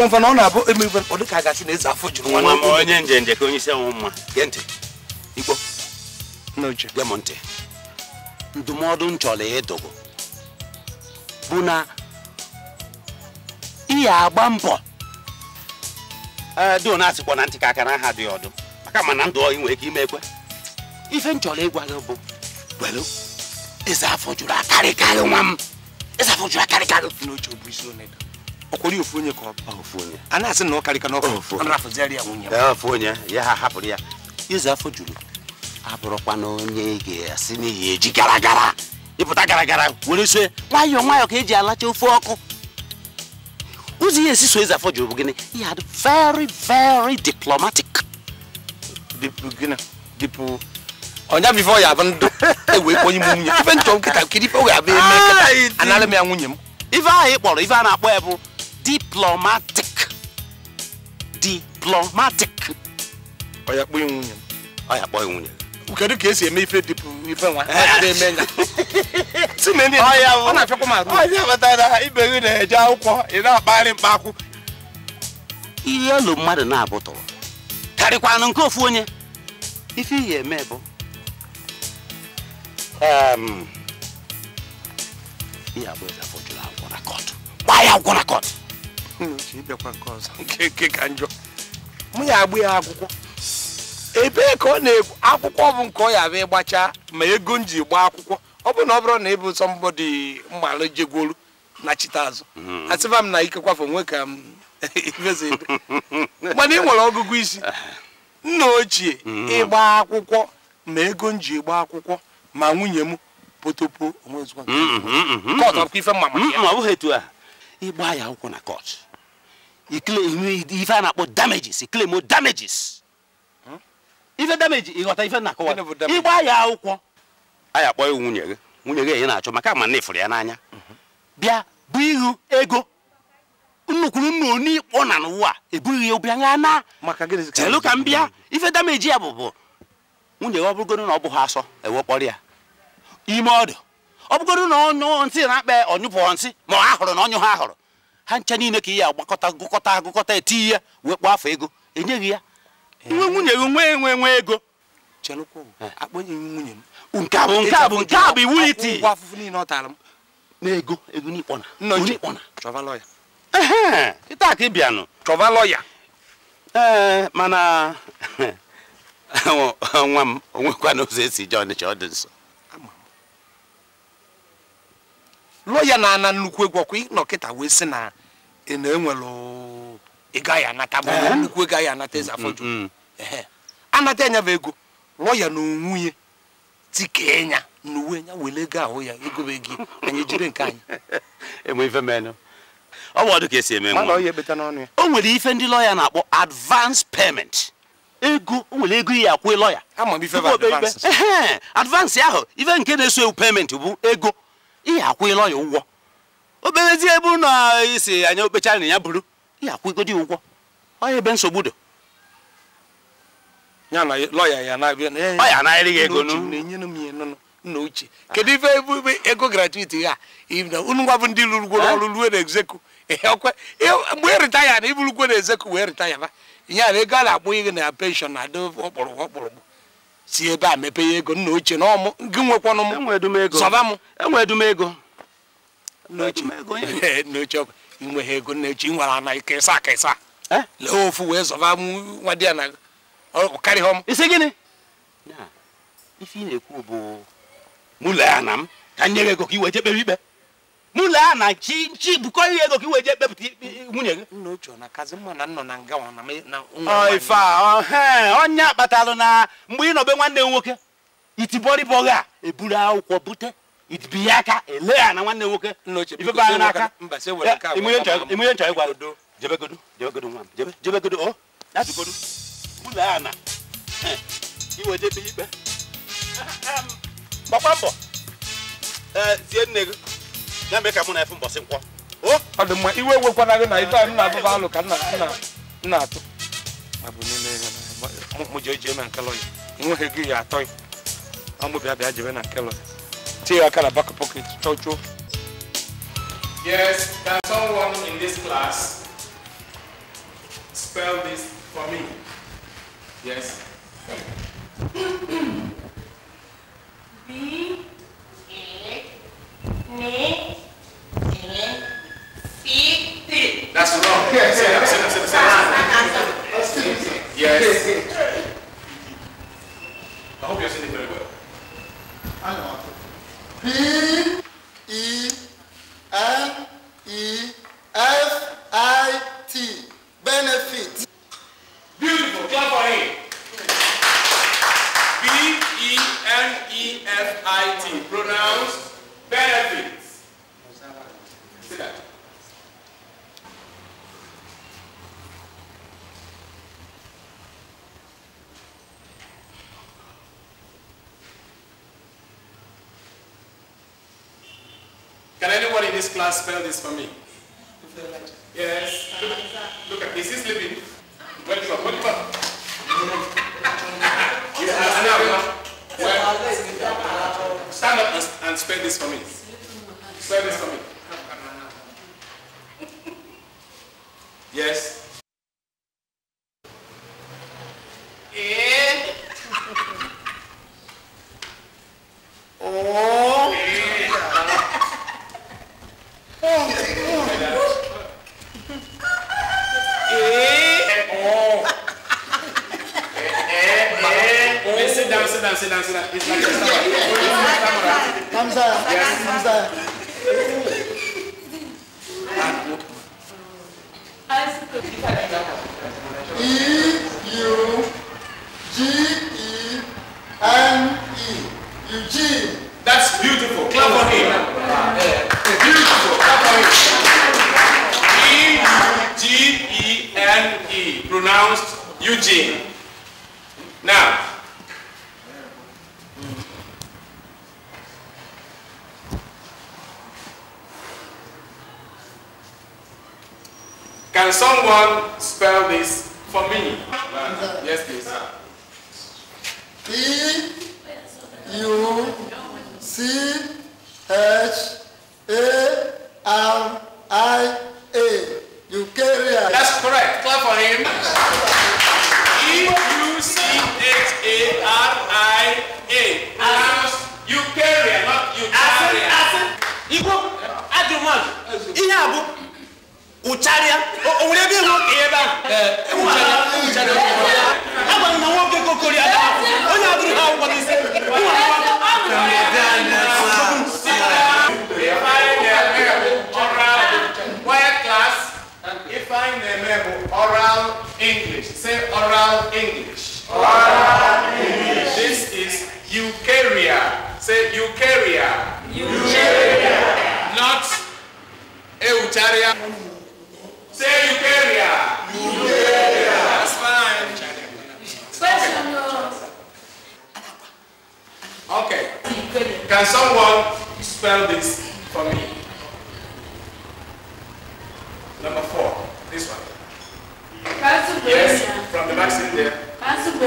ọkụ mfa na ọ na-abụ eme ibe mkpọ dịka gasị na eze afọ juru nwa m onye njenje ka onye isi anwụ mma gee ntị igbo nna uche gee m ntị ndụmọdụ m chọrọ ịdụgụ bụ na ihe agba mbọ eh, dị na asịkwa na ntị ka aka na aha dị ọdụ maka ma na ndụ ọhị nwere ike ime ekwe ife m chọrọ ịgwa gị bụ gwelu eze afọ juru akarịkarị nwa m eze afọ juru akarịkarị n'oche ọ bụ isi onedo ọkwụrụ ofu onye ka ọ oh, ofu onye a na-asị na ọ karịka n'ọkụ rafụziarị ya nwunye ofu onye ya ha hapụrụ ya ịzụ afọ juru abụrụkwa na onye ga-asị n'ihi eji gara gara ịpụta gara gara were so nwayọọ nwayọọ ka eji alacha ofe ọkụ ụzọ ihe esi so ịzụ afọ juru bụ gịnị he had very very diplomatic dipụ ọnya bifọ ya bụ ndụ ewe kwenye m nwunye ife nchọ nkịta nkiri ife wee abịa kata nkịta anara m ya nwunye m ife ahụ ị kpọrọ ife a na-akpọ ya diplomatic diplomatic ọ ya kpọghị nwunye ọ ya kpọghị nwunye kedu ka esi eme ife dịpụ ife nwa na-eme eh. nya ọ na-afịakwa m arụ ọnya batara ibe gị na-eje akwụkwọ ị na-akpagharị mkpakwụ ihe elu mmadụ na-abụtọrọ karịkwanụ nke ofu onye ife ihe eme bụ ihe abụọ efe jụrụ akwụkwọ na kọtụ gbaa ya akwụkwọ na kọtụ n'uche ịbịakwa nke ọzọ nke nke ka njọ mụ ya agba ya akwụkwọ ebee ka ọ na-ekwu akwụkwọ bụ nke ọ ya abịa ịgbacha ma ego m ji gbaa akwụkwọ ọ bụ na ọ bụrụ na ịbụ sọ mbọdị mmalụ jegwolu na chita azụ asịba m na ikekwafe onwe ka m ebe mana ị nwere ọgụgụ isi nna ochie ịgba akwụkwọ ma ego m ji gba akwụkwọ ma nwunye m potopo onwe ozugbo nke ọzọ akwụkwọ ife mma maka ya ịgba ya akwụkwọ na kọọtụ Hmm? ife a na-akpọ damages claim damages ife damages ịghọta ife na-akọwa ịgba ya akwụkwọ a ya akpọ ya nwunye gị nwunye gị enye na-achọ maka ma na ifụrụ ya n'anya hmm. bịa bụ ihu ego nnukwuru nnu onikpọ na n'ụwa ebughị ya obi anya na chelu ka m bịa ife dameji ya bụ bụ nwunye ya ọ na ọ bụghị asọ ewekpọrọ ya ime ọdụ ọ bụgoro na ọnyụ nsị na-akpa ọnyụpụ nsị ma ọ ahụrụ na ọnyụ ha ahụrụ ha ncha niile ka ihe agbakọta gụkọta agụkọta eti ya wee kpọọ afọ ego enyeghị ya nwe nwunye gị nwe enwe nwe ego nwunye m nke a bụ nke a bụ nke a bụ ịta ka ị chọba lọya ee mana nwa m onwekwana ụzọ esi je ọnịcha ọ dị nso lọya na-ana nnukwu egwu ọkwa ịnọkịta wee sị na na enwere ị gaghị anata nnukwu ị gaghị anata eze afọju mm, mm. anata enya na ego lụọ ya na onwunye tikee nya na uwe nya were ego ahụ ya na bụ anyị jiri nke anyị ife ọ bụ ọdụ ka esi eme o nwere ife ndị lọya na-akpọ advance payment ego o nwere ego iyi akwụ lọya advance ahụ ife nke na-eso ewu payment bụ ego iyi akwụ lọya ụgwọ obelezi ebe ụlọ isi anya okpecha na ya bụrụ ya akwụgodi ụgwọ ọya ebe nsogbu dị ya na lọya ya na-abịa eh, ọ ya anaghịrị gị ego na-enyere m ya nna ochie kedu ife ego gratuiti ha unu ngwa bụ ndị lụrụgworo ọrụ ruo eh? na egzeku ọkwe mgbe ị ritaya na iburukwe na ezeku wee ritaya ba ihe a na ego a na-akpụ ihe na penshọn na adị ọkpụrụgwụ ọkpụrụgwụ si ebe a mepe ya ego nna ochie na ọmụ gị nwekwanụ m sọba m enwe edumego n'oche inwe ha ego eh, n'oche nwere ana ịkesa akesa lee ofu wee zọba nwa di ya na karịghị m isi gịnị ife ị na-ekwu bụ mụ lee na m ka nye gị ego ka i wee jee kpebe ikpe mụ lee na chi nchi bukọ ihe ego ka i wee jee kpepụta nwunye gị nna ochie na kazi mma na nnọ na nga ife a onye kpatalụ na mgbe ị nọbe nwanne m nwoke itibọrịbọghị a eburu akwụkwọ bute itipi aka ele ya na nwanne nwoke ifebe anya n'aka imunye nchọ ịgwara jebegodo jebegodo nwa m jebegodo o oh. datugodo ụlọ ya na iwejebe ikpe gbakwa mbọ tie e, nne gị ya mee ka mụ na efe mbọsị nkwọ oh. ọ dị mma iwe ewekwana gị na ife anyị na-abụba alụ ka nna atụ mụ jee jee na nke lọya nweghị gị ya atọ ya ọ mụ bịa bịa jebe na nke lọya Tear kind of back pocket, Yes, can someone in this class spell this for me? Yes. B A N A C T. That's wrong. Yes, yes, yes, yes, yes. Yes. I hope you're it very well. I know. B E N E F I T benefit. Now spell this for me. Yes. Look, look at this. Is living. Welcome. Welcome. Stand up and spell this for me. Spell this for me.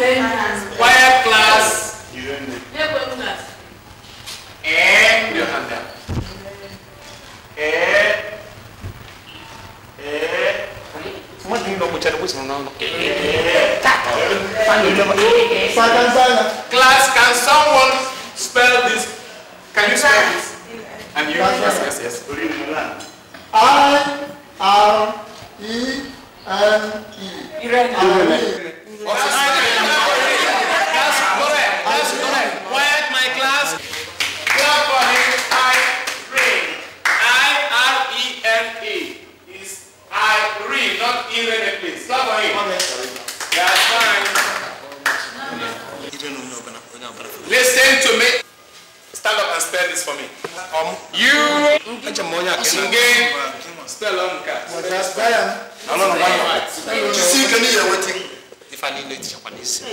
choir class, and your hand up. Class, can someone spell this? Can you spell this? And you, yes, yes, yes. I R E N E. Irene. Irene. Irene. Oh, Irene. Stop right That's fine. Listen to me. Stand up and spell this for me. Um, you again spell on cat. I don't know why. You see, can you hear waiting? If I need it, Japanese.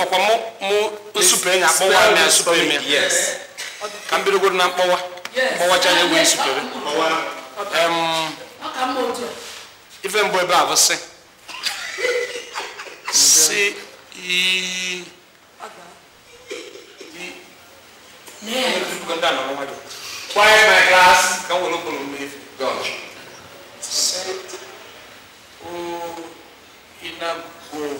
ọkwa mụ nsupe enyi akpọwa na nsupe ime ka m bidogodo na mkpọwa mkpọwa cha wee nsupere even boy bra abo se se ii quiet my class kan wolo open mi god se o oh, ina go.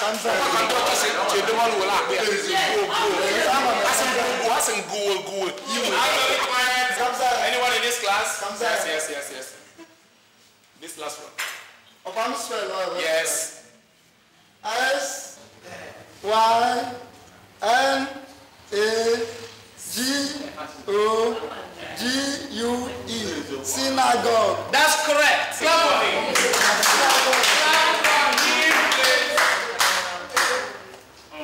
Cedum al wala akbe Anyone in this class? Yes, yes, yes, yes. This last one. Upon spell, Yes. S Y N A G O G U E synagogue. That's correct. Synagogue.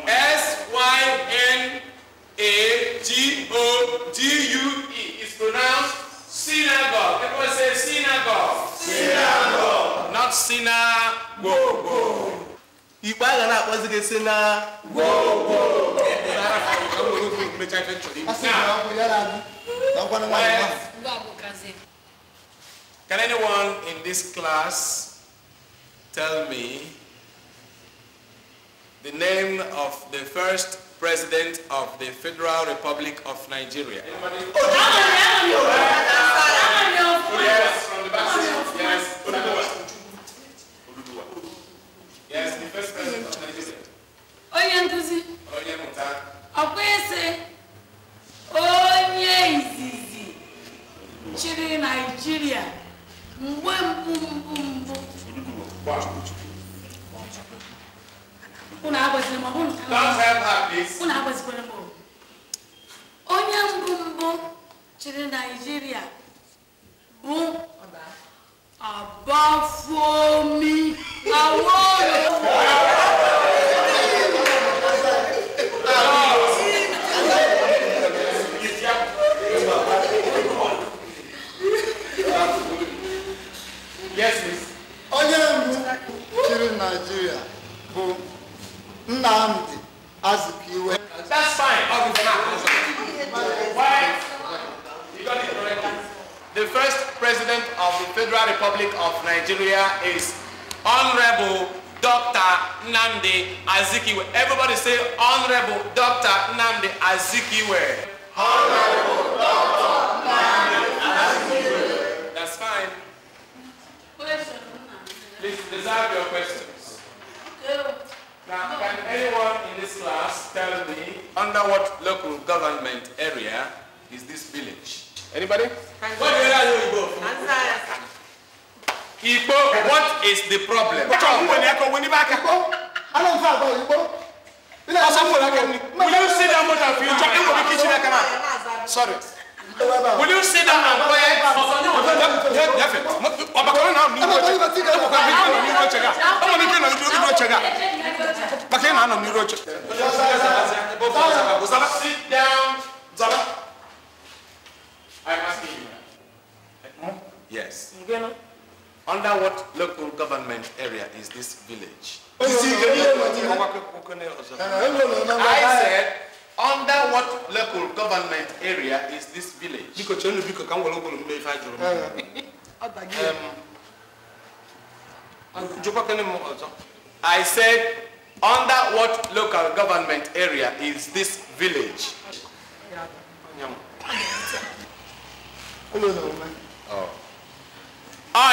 S-Y-N-A-G-O-G-U-E. It's pronounced synagogue. Everyone say synagogue. Synagogue. Not synagogue. You buy that? na-akpọzi gị si Can anyone in this class tell me the name of the first President of the Federal Republic of Nigeria. Yes, the first President of Nigeria.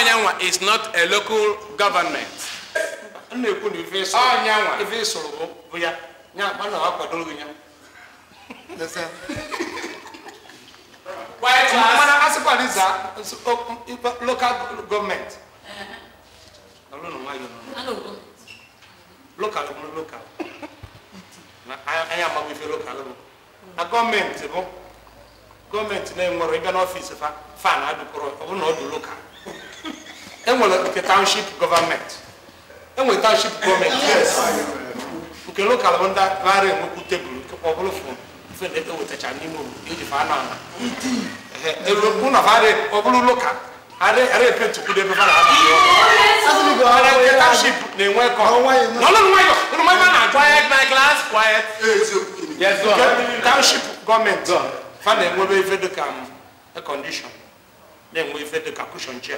ọnyanwa is not a local government na-ekwu eh, na ife ịsụrụ ya ya na ya e local gọọmenti lokal na enwere ịbịa n'ọfiisi fa fan adụkọrọ ọ bụ na enwere nke township government. enwere township government. yes nke local bụ ndị nara enwekwu tebụl nkekwa ọ bụrụ fon fon ewetacha e n'ime obodo eji fa anọ ana ụlọ e fa ọ local. lokal ara epe ebe fa na-ana nke township na-enwe kọ n'ọlụ nwayọ ụlọ nwayọ na-ajụ anya my glass quiet e, nke township gọọmenti fa na-enwebe ife dịka ekọndishọn um, na-enwe ife dịka kushọn chia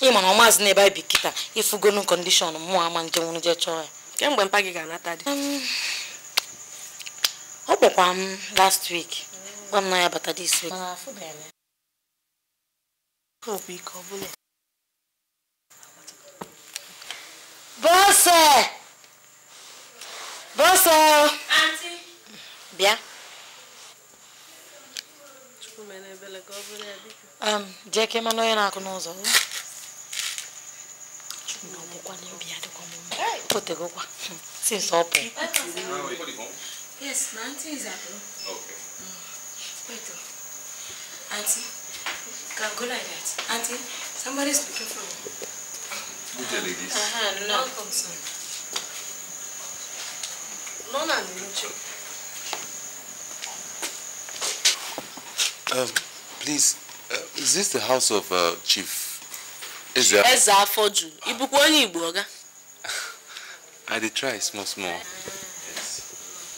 ị ma na ọmazị na ebe anyị bi kịta kọndishọn mụọ ama nje nwụrụ je chọọ ya kemgbe mpa gị ga-anata dị um, ọ kpọkwa m last week gwa m na ya bata dis week bọsọ bọsọ bịa um, jee ka ịmanụ onye na-akụ n'ụzọ ọ̀bùkọ́ ni obì àdìkọ́ mọ́ yes na aunty is abroad. okay. Mm. wait o aunty can go like that Auntie, somebody is looking for me. good day ladies. Uh -huh, no. welcome sir. lọ́nà ni mo jẹ́. Um, please, uh, is this the house of uh, Chief is afọ juru ịbụkwa i did try small small yes.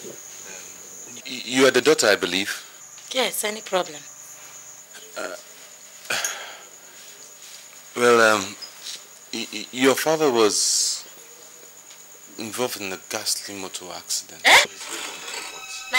um, you are the daughter i believe yes any problem uh, well um, your father was involved in a ghastly motor accident eh? na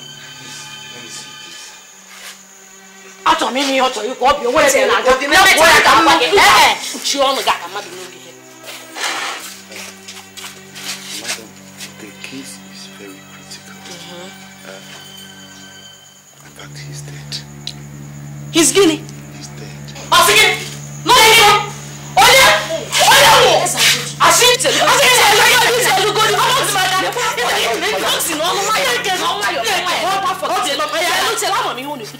na-aga na ya ka mma ọnụ Madam, the case is very critical. hmm uh, in fact, he's dead. He's guinea? He's dead. Oh,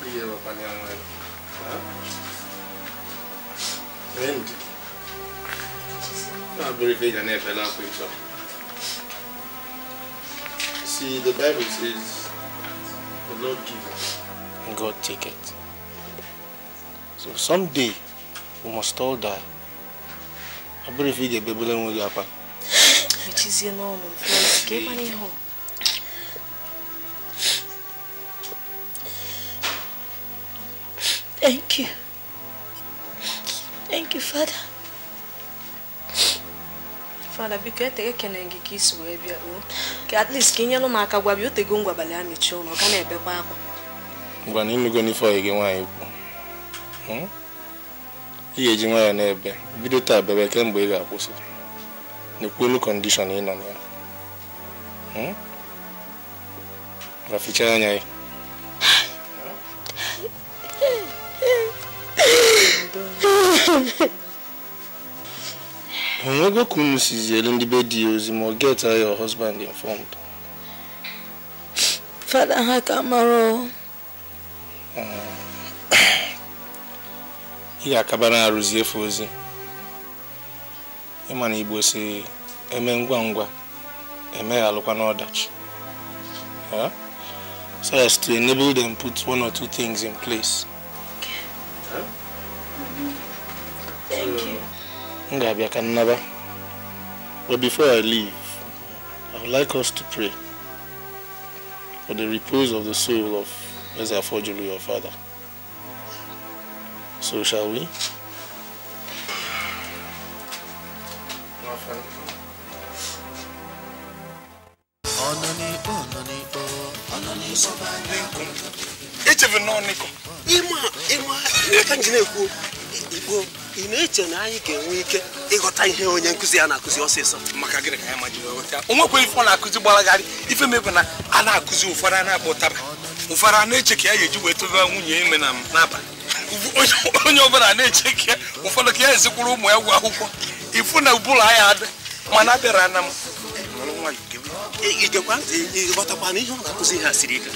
Prijelapan yang lain. Wind. Abbreviation FLA picture. See, the Bible says, the Lord gives. God take it. So someday, we must all die. I believe you get Bible and we'll get up. Which is your normal. Give money home. Thank you. Thank you, Father. Father, biko eteghe kene gị ka isi wee bịa o ka at least ka ị nyelụ aka gwa bịa otego ngwa abalị a mechie ụlọ ka na-ebekwa akwa ngwa na imego n'ife ọyị gị nwaanyị kwu hmm? ị ga-eji nwaanyị na-ebe bido taa bebe kemgbe ị ga-akwụsị n'ekwelu kọndishọn ị nọ na hmm rafichaa anya ya onwego ka unu sizi elu ndị be di ya ozi ma ọ ya your husband informed fada ha ka mara ị ga-akaba na arụzi efe ozi ma na igbo eme ngwa ngwa eme ya alụkwa n'ọdachi so as to enable them put one or two things in place Thank so, you. Ngabia Kannaba. But before I leave, I would like us to pray for the repose of the soul of Ezra Ezafojulu, your father. So shall we? Echevu nọ nịkọ ịma ịma aka can't ekwu okwu Igbo ị na-eche na anyị ga-enwe ike ịghọta ihe onye nkụzi ya na-akụzi ọsịsọ maka gịnị ka ya ma jiri ghọta o nwekwa ife ọ na-akụzi gbalagharị ife mebe na a na-akụzi ụfọdụ a na-akpọ ụtaba ụfọdụ a na-eche ka ya ga-eji wee tobe nwunye ime na n'abalị onye ọbụla na-eche ka ya ụfọdụ ka ya ezikwuru ụmụ ya ụgwọ akwụkwọ ifu na ụbụla ya adị mana abịara na m ịgekwa ntị ịghọtakwa na ihe ọ na-akụzi ha siri ike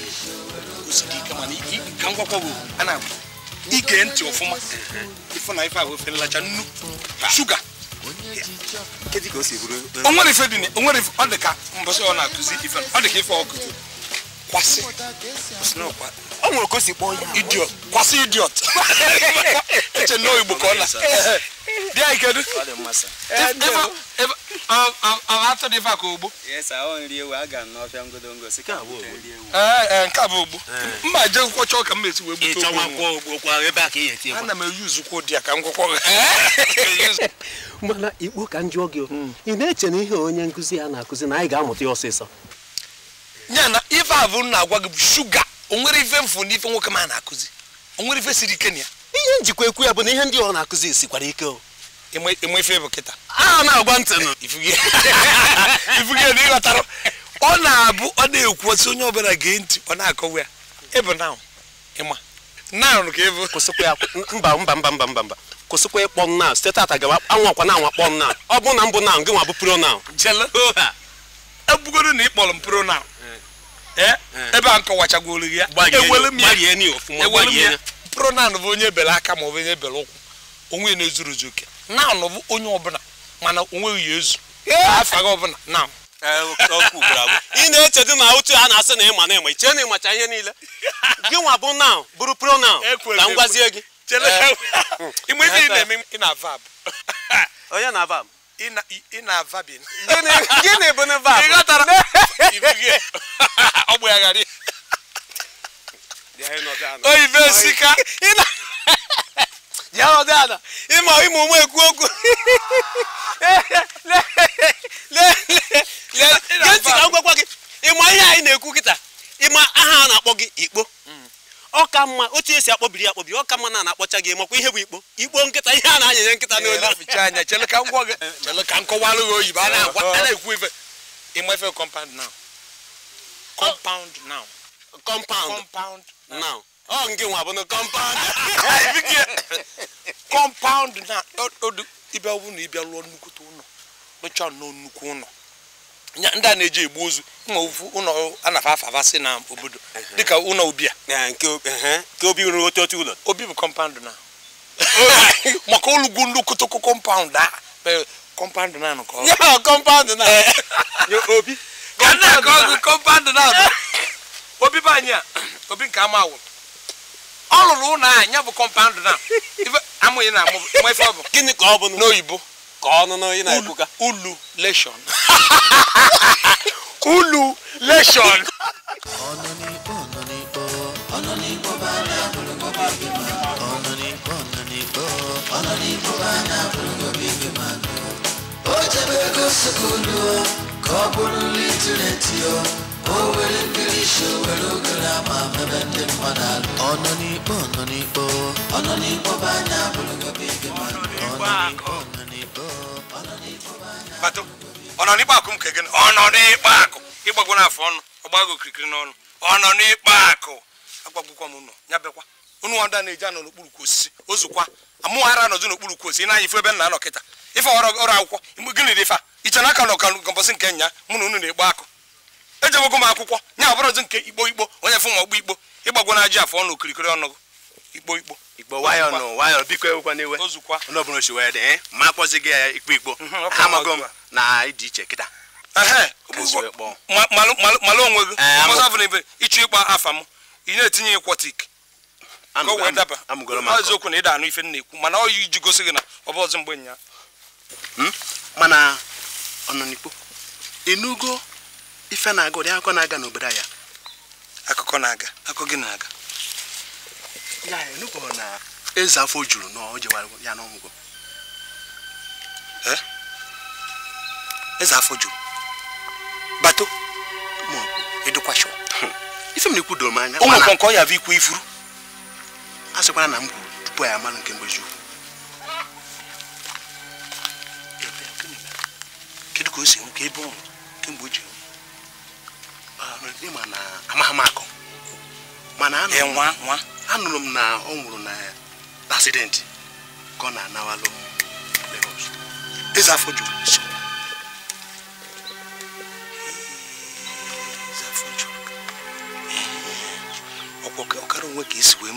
ka m gwakwa a na-agwa ige ntị ọfụma na ife ahụ ofe nlacha nnu shuga onwere ife dị onwere ife ọ dị ka ọ na ọ dị ka ife ọ o nwere ka o si kpọọ idiot kwasị idiot eche na igbo ka ọ na di anyị dị ka ogbo e, nke a bụ ogbo mba je nkwọ chọọ esi wee gbute ogbo ana m eyuzu dị ya ka m gwụkwọ mana ikpo ka njụọ gị hmm. ị na-eche na ihe onye nkụzi ya na-akụzi na anyị ga-amụta ya ọsịsọ ya ife abụ na-agwa gị bụ shuga o ife na ife nwoke na-akụzi o ife siri ike ya ihe njikwa ekwu ya bụ na ihe ndị na-akụzi ike enwefe bụ kịta a ah, na ntị ịghọtara ọ na-abụ ọ na-ekwu osi onye ọbụla gee ntị ọ na-akọwa ya ịbụ na ịma naanụ ka ịbụ mba mba mba mba mba mba kwụsịkwa ịkpọ m site tata gawa anwakwa na anwa kpọ m ọ bụ na mbụ gị nwa bụ pronaanụ ebugodo e na ị kpọrọ m eh. Eh, ebe a nkọwachagwolu gị ya ya bụ onye bere aka ma bụ onye bere ụkwụ onwe na-ezuru oke naanụ bụ onye ọbụla mana onweghị ya ezu afọ gị ọbụla na ị na-echedi na otu a na-asị na ịma na ịma iche na ịmacha ihe niile gị nwa bụ naụ bụrụ pronaụ ka m gwazie gị eh. onye na vab ị na ji arọ dị ada ịmụ ụmụ ekwu okwu ka m gwakwa gị ịma ihe anyị na-ekwu kịta ịma aha a na-akpọ gị ikpo hmm. ọka mma otu esi akpọbiri ya akpọbiri ọka mma na na-akpọcha gị makwa ihe bụ ikpo ikpo nkịta ihe a na-anyanye nkịta n'olu anya chele ọ nke nwa bụ kọmpaụnd kọmpaụnd na ịbịa bụ na ịbịa lụọ nnukwu ụlọ rụchaa nnọọ nnukwu ụlọ ndị a na-eji egbu ozu ma ofu ụlọ anafa afafa si na obodo dịka ụlọ obia nke obi rụrụ otu otu ụlọ obi bụ kọmpaụnd na maka olugwu nnukwu kọmpaụnd a kọmpaụnd na nke ọ kọmpaụnd na obi ka na-akọ ọgụ kọmpaụnd na obi bụ anyị a obi nke ama awụrụ ọlụrụ ụlọ a nya bụ kọmpand na amụghị na mmefe ọ bụ gịnị ka ọ bụ n'oyibo ka ọnụ n'oyi na-ekwuka ulu leshọn ulu leshọn ọ o nwere o nwere ogere ama ndị mmadụ alụ ọnọ n'ikpe bụ anya ma akụ m ka gịnị akụ ịgbagwo n'afọ ọnụ ọgbago okirikiri n'ọnụ ọnọ n'ikpe akụ agwagwụkwa m ụnọ ya bekwa ọda na-eji ka osisi ozukwa n'okpuru osisi ebe nna anọ kịta ọrụ akwụkwọ gịnị dị ife a iche na aka nọ ka nke nya mụ na unu na akụ ejewego m akwụkwọ nye ọdụ nke ikpo ikpo onye fụ ma ọgbọ igbo ịgbagwo na aji afọ ọnụ okirikiri ọnụ ikpo ikpo igbo nwayọ nụ nwayọ biko ewekwana iwe onye ọbụla ochi wee dị eh, ma akpọzi gị ya eh, ikpo igbo mhm, amago m na ịdị iche kịta onwe gị eh, ịchụ ịkpa afa m ị na-etinye eziokwu na ịda anụ ife na-ekwu mana ọ iji gosi gị na ọ bụ ọzọ mgbe hmm? mana ife na-aga ụdị akụkọ na-aga n'obodo ya akụkọ na-aga akụkọ gị na-aga ya na eze afọ juru na o ya n'ọgwụgwọ eh? eze afọ juru bato ma edukwasho hmm. ife m na-ekwudoro m anya ụmụ nkọ nkọ ya bụ ikwu ifuru a sịkwara na m kwuru tupu ya amalụ nke mgbeji ukwu kedu ka o si nwụ ebe ọ kemgbe o ịma na amaghị akụ mana eh, anụrụ m na ọ nwụrụ na asidenti ka ọ na-anawalụ Lagos afọ eh, ọkara onwe ka esi wee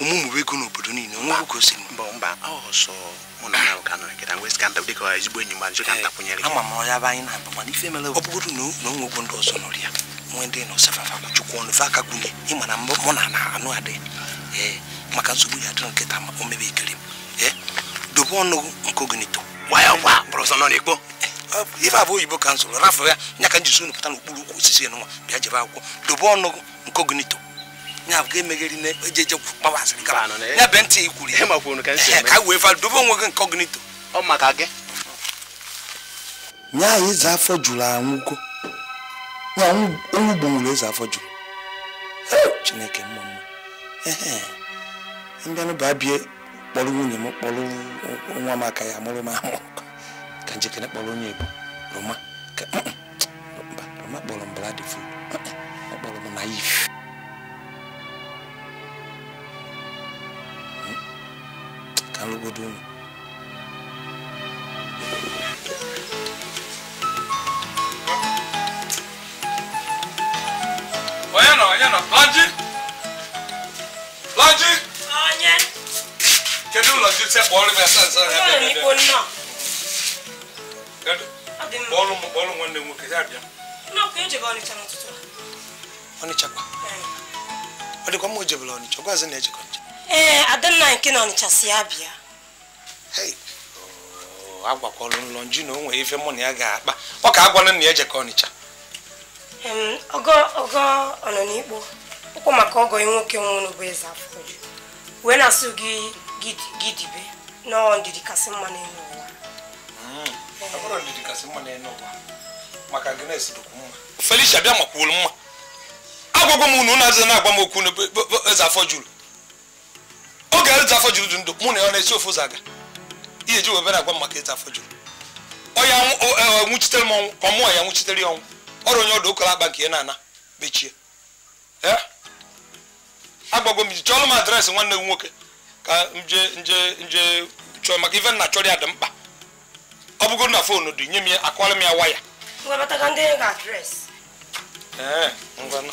omume ego n'obodo niile onwe ka mba mba ama m ọya bụ anyị na-aba mana ife mere ọ bụrụ na na onwe okwu ndị ọzọ nọrọ ya nwee ndị na ọsafafa chukwu ọnụ fe aka gwunye ịma na mụ na na anụ adị ee maka nsogbu ya adịrị nkịta o mebe ekiri m ee dobe ọnụ nke ogenito ife abụ oyibo ka nsogbu rafụ ya nya ka m ji so unu pụta osisi bịa jebe akwụkwọ dobe ya bụ emegheri na ejeje gbawa asịrị kaba ya be ntị ikwuru ihe ka wee fa dobe onwe gị nke ọgụnito ọ maka gị nya anyị eze afọ jụrụ anwụgo ya onwu gbanwere eze afọ jụrụ chineke mma mma ee bụ ba kpọrọ nwunye m kpọrọ nwa m aka ya mụrụ m amụ ka njikere kpọrọ onye bụ roma ka roma kpọrọ mbara dị furu ọ kpọrọ m naif tarugudu nù. Oyana, oyana, Laji! Laji! Onye! Kedu Laji tẹ kpọrọ m asa nsa ya bịa bịa bịa? Kedu? Kpọrọ m kpọrọ m nwanne m nwoke ya bịa. Nna ọkụ ejebe Ọnịcha n'ụtụtụ a. Ọnịcha kwa? Ọ dịkwa mma o jebela Ọnịcha, ọ gwazi na ejekọ. ee eh, adanna nke na ọnịcha si ya bịa oh, agwakwala ụlọ nju na onwe nwere ife mụ na ya ga-akpa ọ ka agwala na ya jeka ọnịcha ogo ogo ọnọ n'ikpo ụkwụ maka ọgọ nwoke nwụrụ bụ eze afọju wee na-asụ gị gidibe nọọ ndidi kasị mma n'elu ụwa hmm. eh. mma maka Felicia bịa makwuolu mma agwagwa m unu na-azụ na-agwa m okwu eze afọ juru oge eze afọ juru dị ndụ mụ na ya na-esi ofu ụzọ aga ihe ji webere agwa maka eze afọ juru onye nwụchitere m ọnwụ ma mụọ ya nwụchitere ya ọnwụ ọrụ onye ọdụ okoro akpa nke ya na-ana mechie agbago m iji chọọrọ m adreesị nwanne m nwoke ka nje nje nje chọọ maka ife nna chọrọ ya dị mkpa ọ bụgoro na foonu dị nye m ya akụwara m ya waya ee ngwana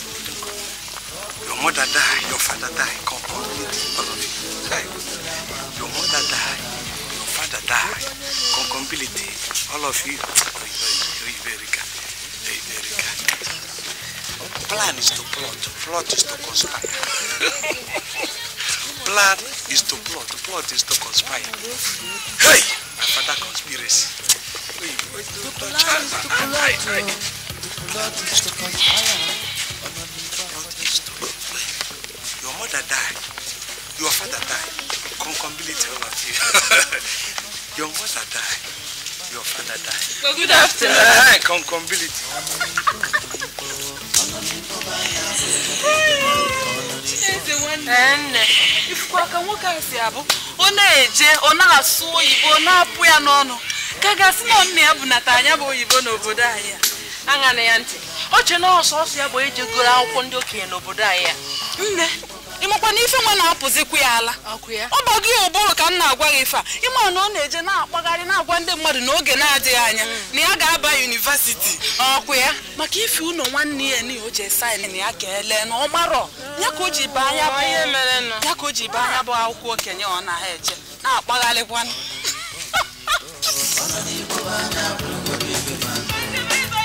Your mother died, your father died, completely, all of you. Hey. Your mother died, your father died, completely, all of you. Plan is to plot, plot is to conspire. Plan is to plot, plot is to conspire. Hey! My father conspiracy. Wait, wait, don't touch her. Plot is to conspire. Your mother died. Your father died. Come Concombility all of you. your mother died. Your father died. Well, good afternoon. Concombility. nne ifukwaka nwoke a si abụ ọ na-eje ọ na-asụ oyibo ọ na-apụ ya n'ọnụ ka gasị na nna ya bunata anya bụ oyibo n'obodo anyị a aṅa na ya ntị oche che na ya bụ e goro akwụkwọ ndị okenye n'obodo anyị ya nne ịmakwa na ife nwa na-apụzikwu ya ala ọ bọgị ụbụrụ ka m na-agwa gị ife a ịma na ọ na-eje na-akpagharị na-agwa ndị mmadụ n'oge na-adịghị anya mm. na ya ga-aba yunivasiti ọkụ ya maka ife ụlọ nwanne ya na o ji saịn na ya ka ele na ọ marọ ya ka o ji baa anya bụ akwụkwọ okenye ọ na-eje na-akpagharịkwanụ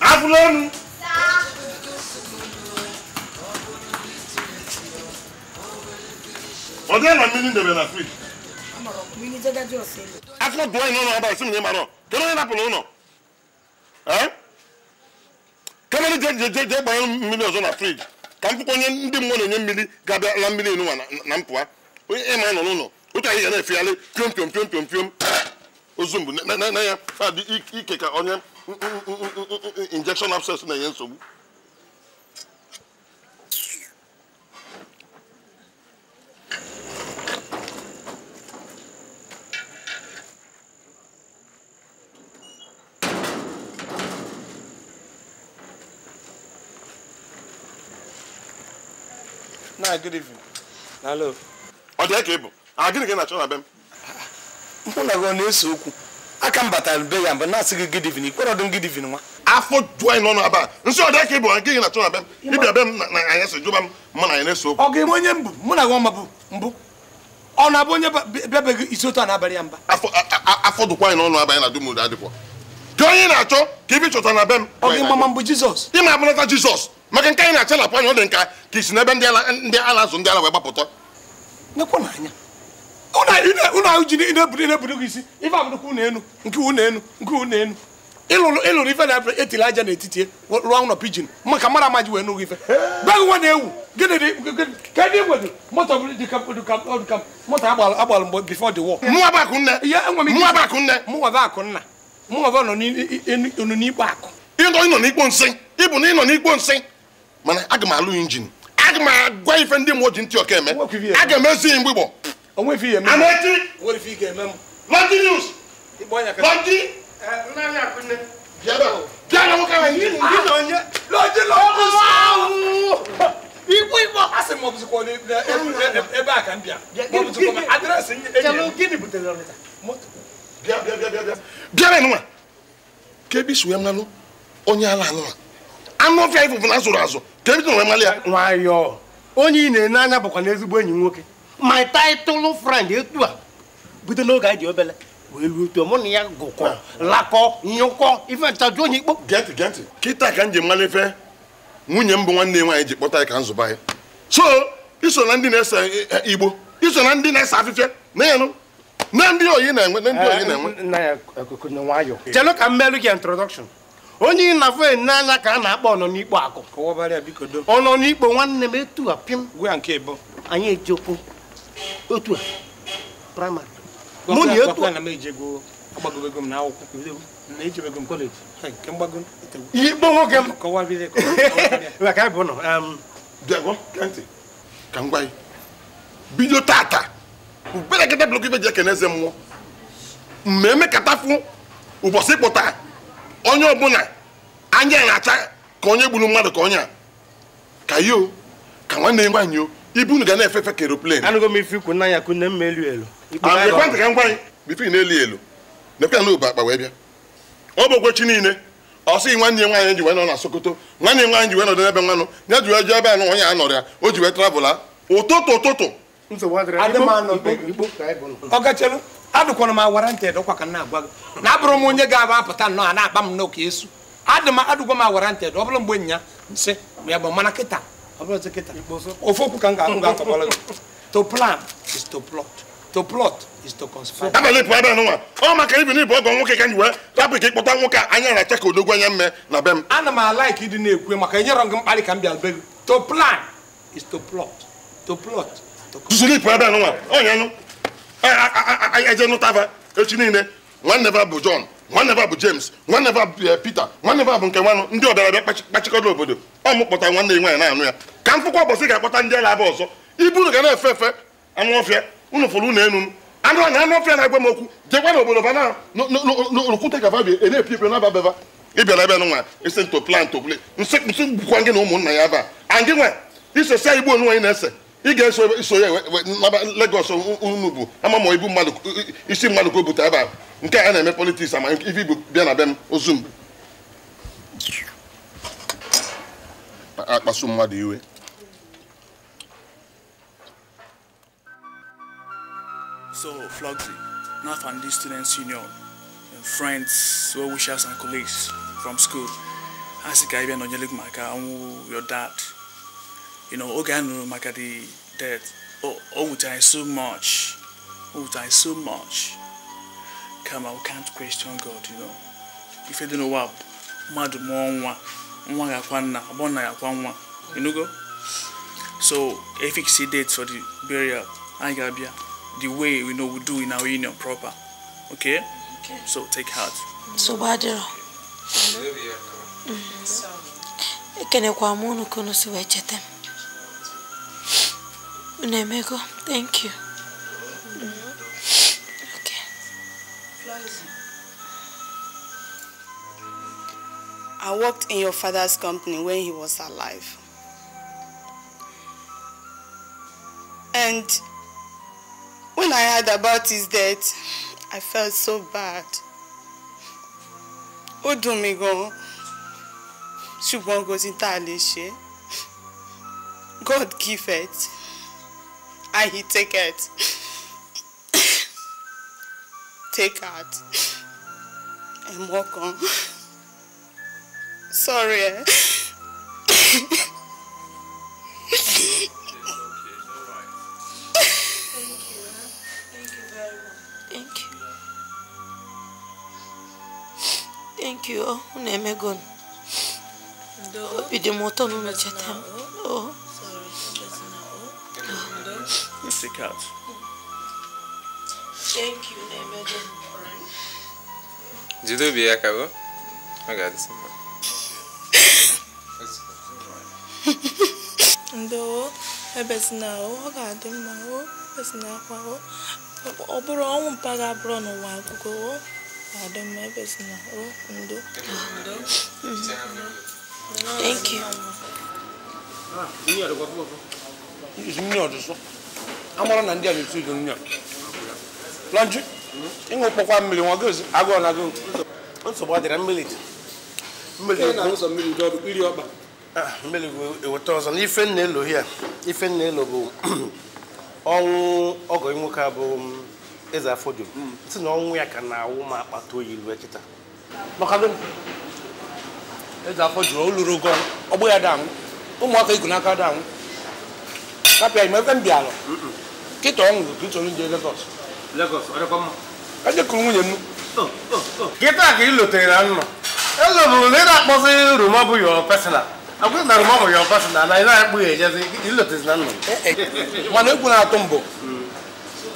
abụla enu ọ dịghị na mmiri debe na frij afọ dụọ ihe ụlọ ọba isi na ịmara kedu onye napụrụ ụlọ onye jee gbanye mmiri ọzọ na frij ka m onye ndị mmụọ na-enye mmiri ga la mmiri na mpụa ịma nọ n'ụlọ otu anyị ga na-efegharị piom ozumbu na ya fadi ah, ike ka onye injection abscess na-enye nsogbu na good evening. Hello. ọ dị ka ị bụ a ah, gịnị ka ị na-achọ na be m mụ na gị na-ese okwu aka m batara be ya mgbe na-asị gị gidivin ikpere ọdụ m gidivin nwa afọ jụọ anyị n'ọnụ aba nsị ọdị ka ịbụ nke gị na-achọ na m na anyị jụba m mụ na anyị na-ese okwu ọ ga-enwe onye mbụ mụ na gị ọma bụ mbụ ọ na-abụ onye bịabeghị isi otu na-abalị ya mba afọ dụkwa anyị n'ọnụ aba anyị na na-achọ ka ibi gị abụnata jizọs maka nke ọ dị nka ka isi n'ebe ndị ala azụ ndị ala wee gbapụta nekwa ụlọ ahụ ji na-eburu gị isi ife abụrụkwa ụlọ enu nke ụlọ enu nke ụlọ enu ịlụrụ ịlụrụ ife na etiri aja n'etiti rụọ ụlọ pijin ma ka mara amaji wee nụghị ife gbaghị nwa na-ewu kedu igwedụ moto moto agbalụ mgbe bifo dị wọ mụnwa bụ akụ nne mụnwa bụ akụ nne mụnwa bụ akụ nna mụnwa bụ nọ n'ikpo akụ ịnọ ịnọ n'ikpo nsị ịbụ na ịnọ n'ikpo nsị mana aga m alụ injin aga m agwa ife ndị mmụọ ji ntị ọka eme aga m ezi mgbigbo ɔmo efi yɛ mɛ. ana eti. wɔn efi yɛ mɛ mu. news. lɔnti. ɛ nna ni akunne. biya bɛ ko. biya na ko ka ɲi. ni ni n'o ye. lɔnti lɔnti ibu ibu. a se mɔbili kɔ ni e b'a kan biya. mɔbili kɔ ma adirɛsi e ɲɛ. jalo gini buteli yɔrɔ de ta. biya biya biya biya. biya bɛ numa. k'ebi suya mun na no ɔnyɛ ala numa. anụ ọfịa ifụfụ na asụrụ asụ ka ebi tụrụ ya nwayọọ onye ị na-ene anya bụkwa n'ezigbo enyi nwoke my title friend etu a bido n'oge anyị dị obele wee ruo otu mụ na ya gụkọ lakọ nyụkọ ife nchaju onye ikpo gentị gentị kịta ka m ji mara nwunye m bụ nwanne nwaanyị ji kpọta anyị ka nzụba anyị so iso na ndị na-ese igbo iso na ndị na-ese afịfịa na-enụ na ndị oyi na-enwe na ndị oyi na-enwe chelu ka m gị introduction onye ị na afọ enyi n'anya ka a na-akpọ ọnọ n'ikpo akụ ọnọ n'ikpo nwanne m etu a pim gwa nke bụ anyị ejekwu otu a praịmarị mụ otu nwoke m ka m gwa gị bido tata ubere blọk ibe ji ekene eze mmụọ mmemme katafụ ụbọchị ịkpụta onye ọbụla anya acha ka onye gburu mmadụ ka onye a ka yo ka nwanne nwaanyị o ibu unu ga na-efefe ka eroplen anụgo m ife ikwu n'anya ka nne m elu elu ah, ekwentị ka m gwa anyị bifo ị na-eli elu nekwa na obu akpa wee bịa ọ bụ okwechi niile ọ sịghị nwanne ya nwaanyị ji wee nọ na Sokoto nwanne nwaanyị ji wee nọdụ nwanụ ya ji wee ebe o ji wee travụla ụtụtụ ụtụtụ adụkwana m awara ntị ka na-agwa gị na abụrụ onye ga aba apụta nnọọ a na-akpa bụrụ mgbe ofoku to plan is to plot to plot is to conspire. abalị pụọ ebe nwa ọ maka ibi n'ibu ọgọ nwoke ka nyi wee tapụ ka ịkpọta nwoke a anya na-acha ka odogwu anya mme na be m ana m alaik ịdị na-ekwe maka enyere gị mkparị ka m bịa be gị to plan is to plot to plot you, Oh, know, I, I ebe nwa onye nụ know nụtava echi niile One never bụ john nwanne ba bụ James nwanne ba bụ eh, Peter nwanne ba bụ nke nwanụ ndị bịa kpachikọrọ obodo ọ mụkpọta nwanne ya nwaanyị na-anụ ya ka mkpụkwa ụbọchị ga-akpọta ndị agha abịa ọzọ ibu unu ga na-efe efe anụ ọfịa unu fụrụ unu enu anụ anya anụ ọfịa na-agwa m okwu jekwa na obodo bana n'olukwute ka babia e na-epi epi na ababeba ịbịara ebe nwa isi nto plan to nsị gbukwa gị na ụmụnna ya ebe a and gị nwa igbo onwe anyị na-ese i ga-eso iso ya naba unu bụ ama ma ibu mmadụ isi mmadụ ka o bute ebe a nke a na-eme politiks ama ife ibu bịa na be m ozu m akpasu mmadụ iwe So, and Nafandi Students Union, and friends, well wishers, and colleagues from school, Asika Ibian Onyelik Maka, your dad, you know oge a nụrụ maka the death o so much o nwụtara so much kama we can't question God you know if you don't ife dị n'ụwa mmadụ mụọ nwa nwa gakwa nna abụọ nna You know, go. so efix date for the burial I ga ga-abịa the way we know we do in our union proper okay, okay. so take heart so badero. badịrọ mm-hmm. ekenekwa m unu ka unu si wee cheta m Unemego, thank you. Okay. I worked in your father's company when he was alive. And when I heard about his death, I felt so bad. Ó dùn mí gan-an. Ṣùgbọ́n kò God give it. I take it. take out. And walk on. Sorry. Eh? Thank you. Thank you. Thank you. Thank oh, you. Oh, sick out. Thank you, né, meu Deus? Tudo bem, acabou? Obrigado, senhor. Ndo, ebezina é o, obrigado, irmão. Ebezina kwa o. Ọ bụrụ ọnwụ mpaghara abụrụ n'ụwa akwụkwọ o. Adam ebezina o, ndo. Thank you. Ah, mmiri ọdụ sọ. amara na ndị a na-etu ugo nya lọnjụ ịṅụ kpọkwa mmiri nwa gozi agụọ na agụụ nsogbu ọ dịra mmiri mmiri ah, eweta ọzọ na ife nna elo ya ife nna elo bụ ọnwụ ọgọ nwoke a bụ um, eze afọdụ hmm. si na ọnwụ ya ka na-awụ ma akpata oyi lue kịta eze afọdụ o luru ogo ọgbụ ya danwụ ụmụaka igu n'aka danwụ kapịa ime ebe m bịara nkịta ọ nwụrụ ka ị chọrọ ije Lagos ejekuru nwunye m nkịta oh, oh, oh. ka ị lotere na nnọ elobụrụ na ị na-akpọzi roma bụ yo pesina na roma bụ yo na ị na ya ejezi ilotezi na eh, eh, mana egwu na-atụ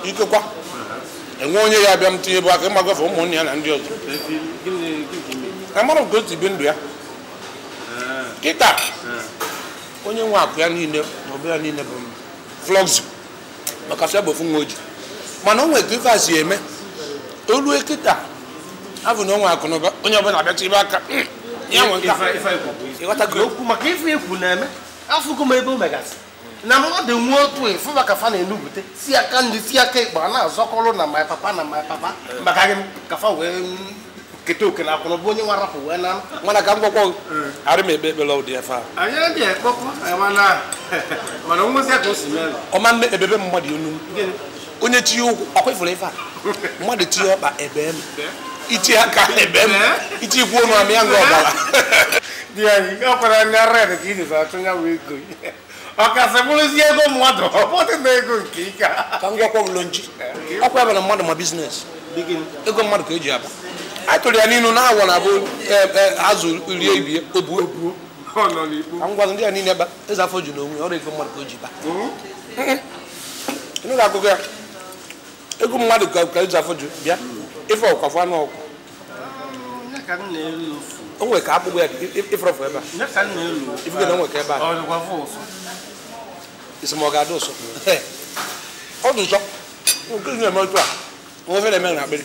ikekwa mm-hmm. enwe onye ya abịa m tinye bụ aka ịmagọfe ụmụnne ya na ndị ọzọ ka ndụ ya eh. kịta onye nwe akụ ya niile ọbụ ya niile bụ m maka sị bụ nwa oji mana onwe ka eme olu ekita afọ na onwe akụ onye ọbụla abịacha ibe aka hmm. ya okwu maka ife na-eme ebe o megasị na mmadụ nwee otu efu maka fa na-enupụta si aka ndị si aka ịkpa na-azọkọrọ na my papa na my papa maka gị kete o kena kɔnɔ bo nye wa rapo wɛ nan. mana ka gbɔgbɔ ari mi bɛ lɔ o fa. a yɛrɛ deɛ kpɔkpɔ ɛwɔ na mana ŋun se k'o simɛ. ɔma ne ebe bɛ mɔ de nu onye ti o akɔ ifɔlɔ ifa mɔ de ti o ba ɛbɛ mi iti aka ɛbɛ mi iti ku onu ami aŋɔ ɔba la. diɛ yi ɔkpɛrɛ ni arɛ de k'i nisɔn atu nya wo ego yi ɔkasɛ bolo si ego mua dɔ ɔbɔtɛ na ego nke yi ka. ka ŋgɔ kɔ wulonji ɔkpɛ bɛ na mɔ de business ego mɔ de ko eji aba atụrụ ya n'inu na awọ na abụ e, e, azụ rie ibie obuo ngwazụ ndị a niile ba eze afọ ju n'onwe ọrụ ego mmadụ ka o ji ba ịnụ ga akụkọ ya ego mmadụ ka eze afọ ju bịa ife ọkwafọ anụ ọkwụ o nwere ka akpụkpọ ya ifrọfọ ebe a ifege na o nwere ka ebe a esemọga adị ụsọ ọ dị nsọ nke na-eme otu a nwe ofe na-eme na akpịrị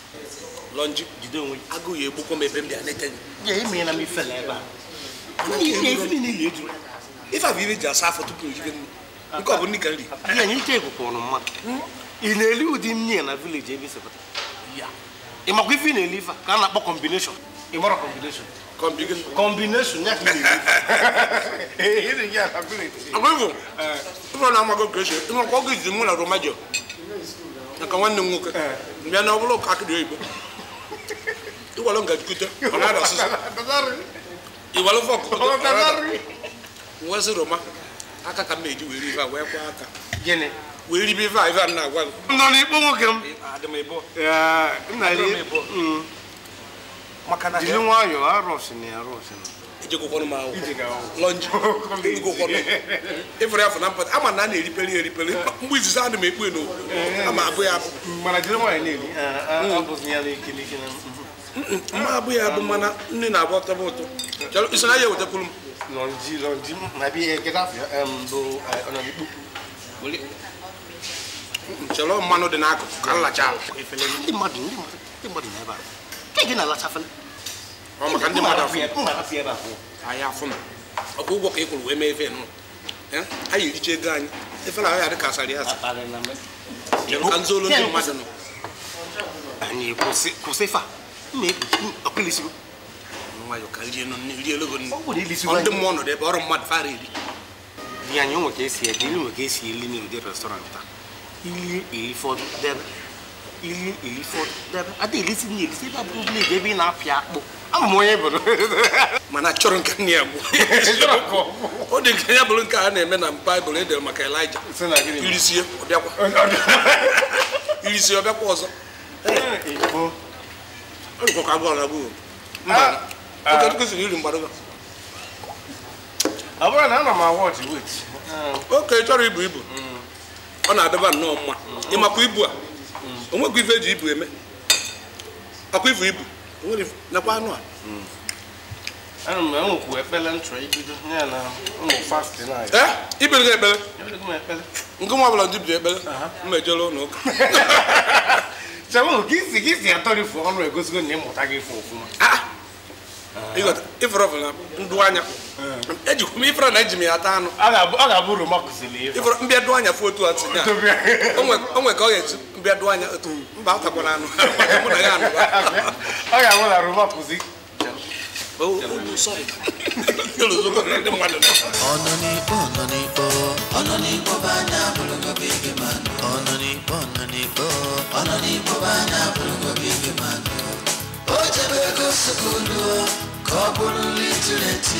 lọnji jide onwe gị ya egbukwa m ebe m bịa leta ife abụ ibe ji asa afọ tupu iribe nri nke ọ bụ nri ka nri hmm? ị na-eli ụdị nri na vileji ebe ị makwa ife ị na-eli ife ka na-akpọ kọmbineshọn kọmbineshọn ya na eh, village agwego eh, na-amago kreshe ịmakwa mụ na romajo naka nwanne m nwoke eh. mbịa na ọ bụla ụka oyibo iwalo nga dukute ọlá da soso iwalo fọ kutu ọlá wọsi roma aka ka meji weri ifa wee kwa aka gịnị weri ibe ifa ifa nna agwa nọ n'ikpo nwoke m adịm ịbụ nna ya mm. maka na jiri nwayọọ arụsị na arụsị na ịfụrụ afọ na mpata ama na a na-eriperi eriperi mgbe izizi adị m ekpe n'okwu ama abụ ya mma ah, ah, hmm. mhm. abụ ya bụ mana nne na-agba ọtọba ụtọ iso na ya ewetakwuru m eh, mmanụ dị n'akụkụ ka nlacha ndị mmadụ ndị mmadụ ndị mmadụ na ebe a gị ɔmɔ kan tɛ mada fún a y'a fún a ko bɔ k'e kolo wɛmɛ e fɛ yen nɔ a yi ce gan e fana a y'a di karisa de y'a sa an zolo ni ma dɔn. ani kò se fa ne ɔkè lisi. wa yɔ ka liye nɔ liye lɔgɔ ni ɔn tɛ mɔɔ nɔ dɛ bɔrɔ mɔ fa de. diya ɲɔgɔn k'e si yɛ deni ŋɔ k'e si yɛ li ni o de restaurant ta ili ili fɔ dɛbɛ ili ili fɔ dɛbɛ a tɛ ili si ni ili si b'a bɔ bilen de bi n'a fi a kpɔ. ama m onye bụrụ mana chọrọ nke nne ya gwụ ọ dị nke ya bụrụ nke a na-eme na baịbụl edere maka elija irisie ọbịakwa ọzọ ah, ah. oke chọrọ ibu ibu mm. ọ na-adịba nnọọ mma ịmakwa ibu a mm. o ife eji ibu eme akwa ifu ibu nwere nakwa anụ a ana m nwekwu ekpele nchọrọ ibido ya na ụmụ fast na ee ibere gị ekpele nke nwa ọbụla ndị bido ekpele mmejere ụlọ ụka chabụ ka isi gị si atọrifu ọrụ egosigo na ịmụta gị ife ọfụma ifere ọfụla ndụ anya ejikwa m ifere na eji m ya ata anụ ọ ga-abụ oroma kụziri ifere mbịa dụ anya fụ otu a tinye o nwe ka ọ ga-eji bɛdoanya tum mbata kɔnano mudagano akamuna ruma kuzi ọnụnikpo ọnụnikpo ọnụnikpo bụ anya abụrụgo bụ ige mmanụ ọnụnikpo ọnụnikpo ọnụnikpo bụ anya abụrụgo bụ ige mmanụ o jebe ego sokolo ka ọ bụrụ nri tiri eti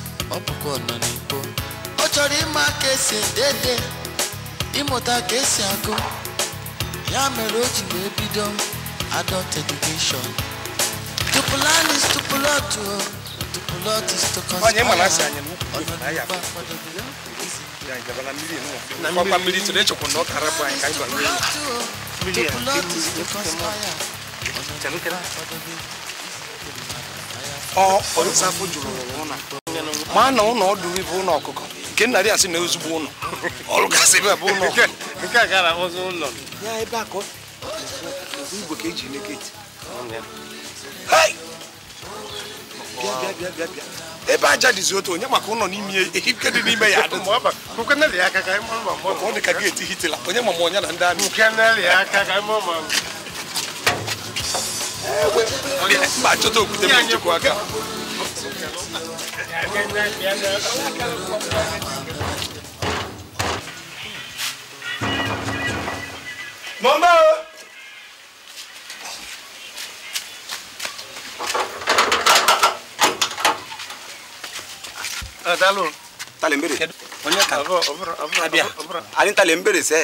ọbụkọ nọ n'ikpo ọ chọrọ ịma ka esi edede ịmụta ya mere o ji wee bido adult education to plan is to plot o to plot is to conspire ọnọdụ mkpa mmiri tụrụ echekwa na ọ kara bụ anyị ka anyị gwara mmiri to plot is to conspire ọnọdụ mkpa mmiri ọ ọrụ safo jụrụ ụlọ ma na ụlọ ọdụrụ bụ ụlọ ọkụkọ nke nna asị na ozugbo ụlọ ọrụ gasị ebe a bụ ụlọ ebe a ka ebe aja dịzi otu onye maka ụlọ n'ime ehike dị n'ime ya ọ dị ka geeti hitila onye na ndị amị mba chọta okwute njikwa aka mọ̀ ń bá eh, o. dalo tale mbere onya kan abia ani tale mbere se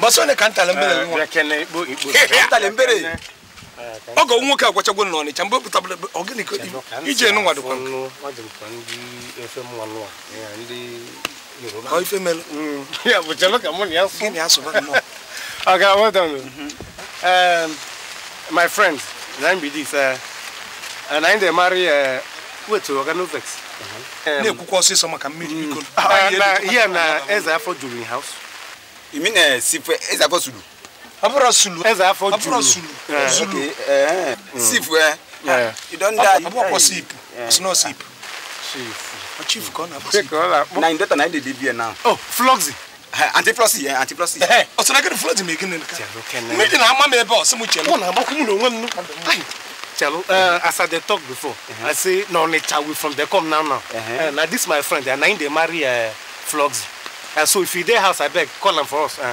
boso ne kan tale mbere mo kene bo ipo tale ọ ga nwoke agwachagwo mm, na ọnịcha mgbe pụtabara ọgịnịko ije nụnwa dịkwa Okay, well done. Mm -hmm. um, my friend, nine be and I marry Na-ekwukwa ọsịsọ maka mmiri mm. biko. Ah, na ihe na eze afọ juru house. You mean eh, eze afọ Abura Sulu. Eze afọ Julu. Abura Sulu. Zulu. Sif ẹ. Mm. Ah, you don die. Abu ọkọ sip. Snow sip. Chief kọ́ na sip. Na ndeta na ndede bi ẹ na. Oh Floxy. Antiplosi yẹn Antiplosi. Ọ̀sán akẹ́ni Floxy mi gíni nìkan. Méjì na ama mi ẹ bẹ ọ̀sán mu jẹun. Wọ́n na abọ́kú mu n'onwe mu. Chalo, uh, eh, as I talk before, uh-huh. I say no nature we from there. come now now. Uh now this my friend, and now they marry uh, Floxy. so if you there house, I beg call them for us. Uh,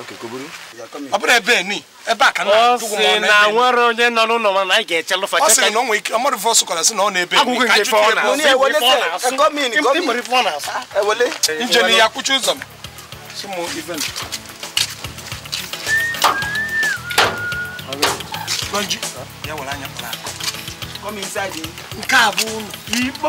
ọbụrụ ebe ni ebe a ka nna dụgwụ ma ọ na nwere onye nọ n'ụlọ ma na anyị ga-eche lụfa ọ sị na onwe ike ọmọdụ fọ sụkwara sị na ọ na-ebe agwụgwụ nke ife ọ na-asụ njem ya kwụchi ụzọ m nke a bụ ụlọ ikpo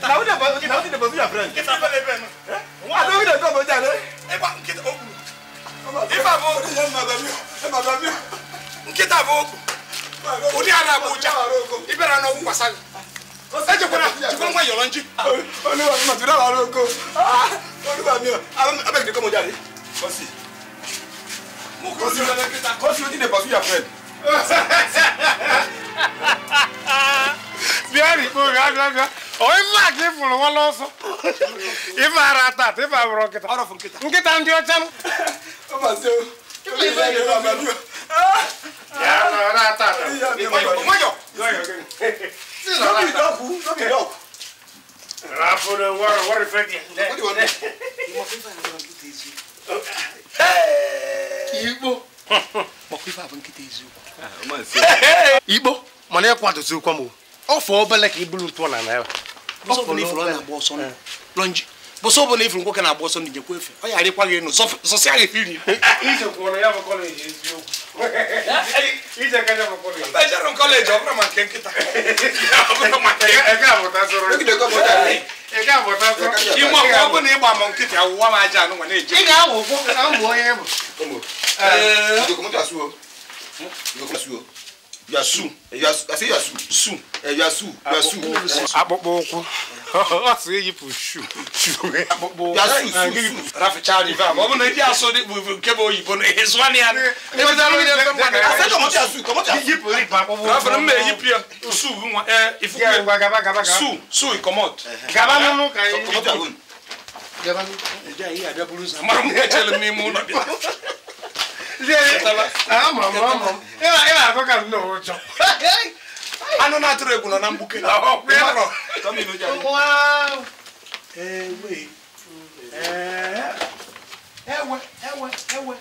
nkịta na ụdị abụọ na ụdị abụọ ya brand nkịta bele ebe nọ nwa na ụdị abụọ ja le ịgba nkịta o kwuru ife abụ okwu ya mmadụ mi mmadụ mi nkịta bụ okwu ụdị a na-agba ụja ịbịara n'ọgwụ kwasa gị ejekwana jikwa nwa yọrọ nji olúwa mi màtúndà wà lóko olúwa mi abẹ́gidé kọ́mọ jáde kọ́sì kọ́sì ló ti dé pàṣẹ yà fẹ́. Biari, ko ga ga ga onye mmadụ ifuru nwala ọsọ ife ara ata ata ife abụrụ nkịta nkịta ndị ọcha m igbo mana ịkwadozi ụkwa m ofe obele ka i buru ntụ na naira bọsọfọ eh. na ifuru ọ na-agba ọsọ ndụ lọnji bọsọfọ na ifuru nwoke na-agba ọsọ ndụ nyekwa efe ọ yara ịkwa gị enu zọsi agha efe iri ejerụ kọleji ọbụrụ ma nke nkịta ime ọkụ ọ bụ na ịgba ma nkịta awụwa m aja anụ nwa na-eje ị ga-awụ ụkwụ na ụmụ onye bụ you are su you are i say you are su su you are su you are su. akpụkpọ ụkwụ ọ sị eyipụ shu shu akpụkpọ ụkwụ raficha rive ma ọ bụ na ndị asụ dị bụ nke bụ oyibo na ihe zụwa ya yipụ rive akpụkpọ ụkwụ rafin mma eyipụ ya su nwa eh, ifuku su su ikomot gaba n'ụlọ ka anyị gaba n'ụlọ ndị ahịa abịa buru ụzọ amara m ka echere m n'ime ụlọ bịa ị eh, na ụjọ anụ na-atụrụ egwu nọ na mgbuke eh, ewe ewe ewe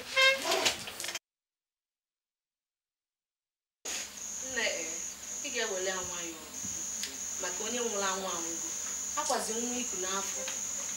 ị ga-ewele maka onye nwụrụ anwụ anwụgo akwazi nwa iku n'afọ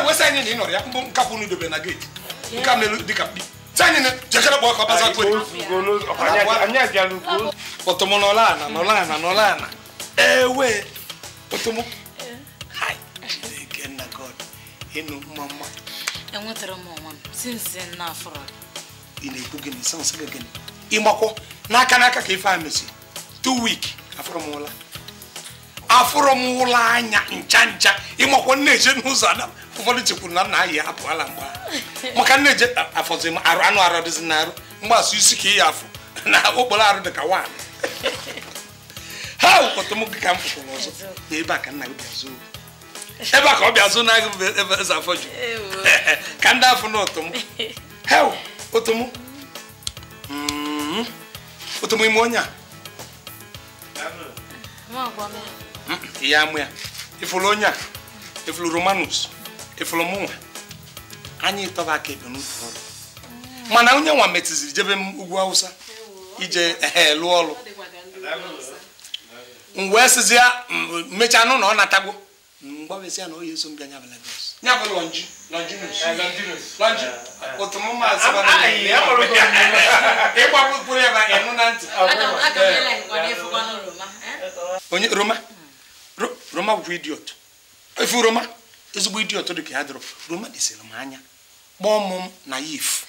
ewesa anyị na ị nọrọ ya mbụ nka kwụ unu dobe na geeti nka melu dịka mkpi jekere gba ọkọ baza kwere otomo nọla ana nọla ana nọla ana ewe ịnụ mma mma enwetara m sinsi na afọrọ ị na-ekwu gịnị sansị gị gịnị ịmakwọ n'aka n'aka ka ife a mesi afọrọ m ụla afụrụ m ụlọ anya ncha ncha ịmakwa nneje n'ụzọ ada ụfọdụ chekwuru na nna anyị apụala mgbe maka nneje afọzi m arụ anụ arụ dịzi n'arụ mgbasụ isi ka ị ya afụ na okporo arụ dị ka nwaanyị ha wụkọtụm gị ka m fụfụrụ ọzọ ebe a ka nna gị bịazụ ebe a ka ọ bịa na agụ ebe eze afọ ju ka ndị afọ na otom hew otom otom ime onye a iyamua ifolo onya ifolo romanus ifolo mụnwa anyị tọba aka ebe n'ụfọdụ mana onye nwa metụziri jebe m ugwu awụsa ije ee lụọ ọrụ m wee sịzi ya mechaa nụ na ọ natagbo mgbabezi ya na oyi eso m bịa nyabala Lagos nya bụ lọnji lọnji lọnji otu m ma asị eh? bara ịgbapụ mkpụrụ ya ba ịnụ roma roma bụkwa idiot efu roma ezigbo idiot dị ka ya dịrọ roma desịrị m anya kpọọ m naif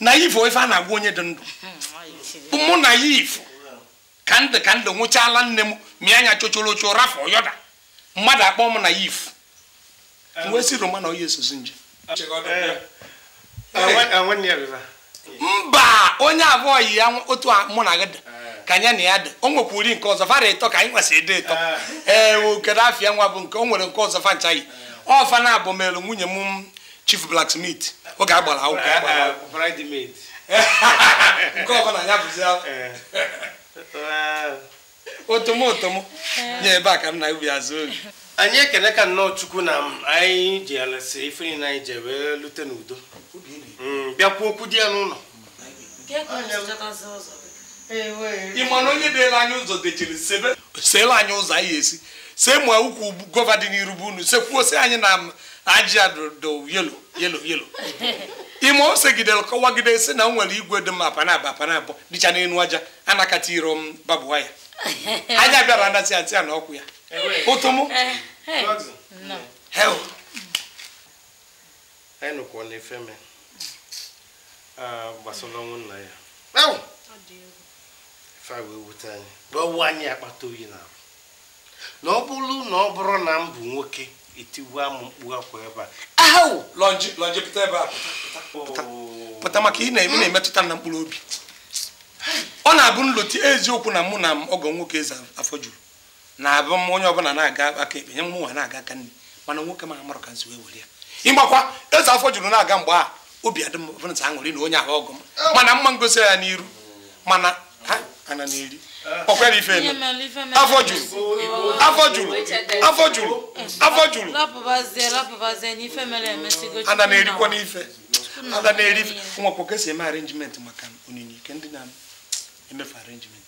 naif ife a na-agwa onye dị ndụ hmm, mụ naif ka ndị ka ndị nwụchaala nne m mịa anya chochoro ocho rafọ yọda mmadụ akpọ m naif eh. wee si roma na onye esozi nje eh. Eh, mba onye abụọ yi ya otu mụ na gị dị kanya anya na ya dị o nwekwuri nke ọzọ fara ịtọ ka anyị nwesị ịdị ịtọ ee okedo afia nwa bụ nke o nwere nke ọzọ fa nchaghị eh. ọfa na abụ melu nwunye m chief blacksmith oge agbara otomotom nye ebe a ka m na ubi azụ oge anyị ekele ka nnọọ chukwu na anyị ji alasi ife niile anyị ji wee lute n'udo mm, bịakwa okwu dị ya n'ụlọ ị onye deela anyị ụzọ dechiri seela anyị ụzọ anyị esi see ma ukwu gova dị n'iru bụ unu sekwuosi anyị na aji yelo yelo yelo ime ose gidere kọwagide si na nwere igwe dị mma panaba panabọ dịcha n'elu aja anakata iro m babụwa ya anya bịara anasị atị ya na ọkwụ ya ụtụmụ eh, eh. anyị nụkwa fa anyị wee anyị akpata oyi na arụ na ọ bụrụ na ọ bụrụ na m bụ nwoke etiwua m mkpu akwa ebe a ahụ pụta ebe pụta maka ị na-emetụta na mkpụrụ obi ọ na-abụ nloti eziokwu na mụ na m ọgọ nwoke eze afọ juru na-abụ m onye ọbụla na-aga aka ebe nye m nwa na-aga aka nne mana nwoke ma ka afọ juru na-aga mgbe obi m na onye ahụ ọgọ m mana mma ngosi ya n'iru ana na-eri ọkwara ife afọ juru afọ juru afọ juru afọ juru ana na-erikwa n'ife ana na-eri ife nwakwa kesa eme arrangement maka onyinye ike ndị na-emefe arenjiment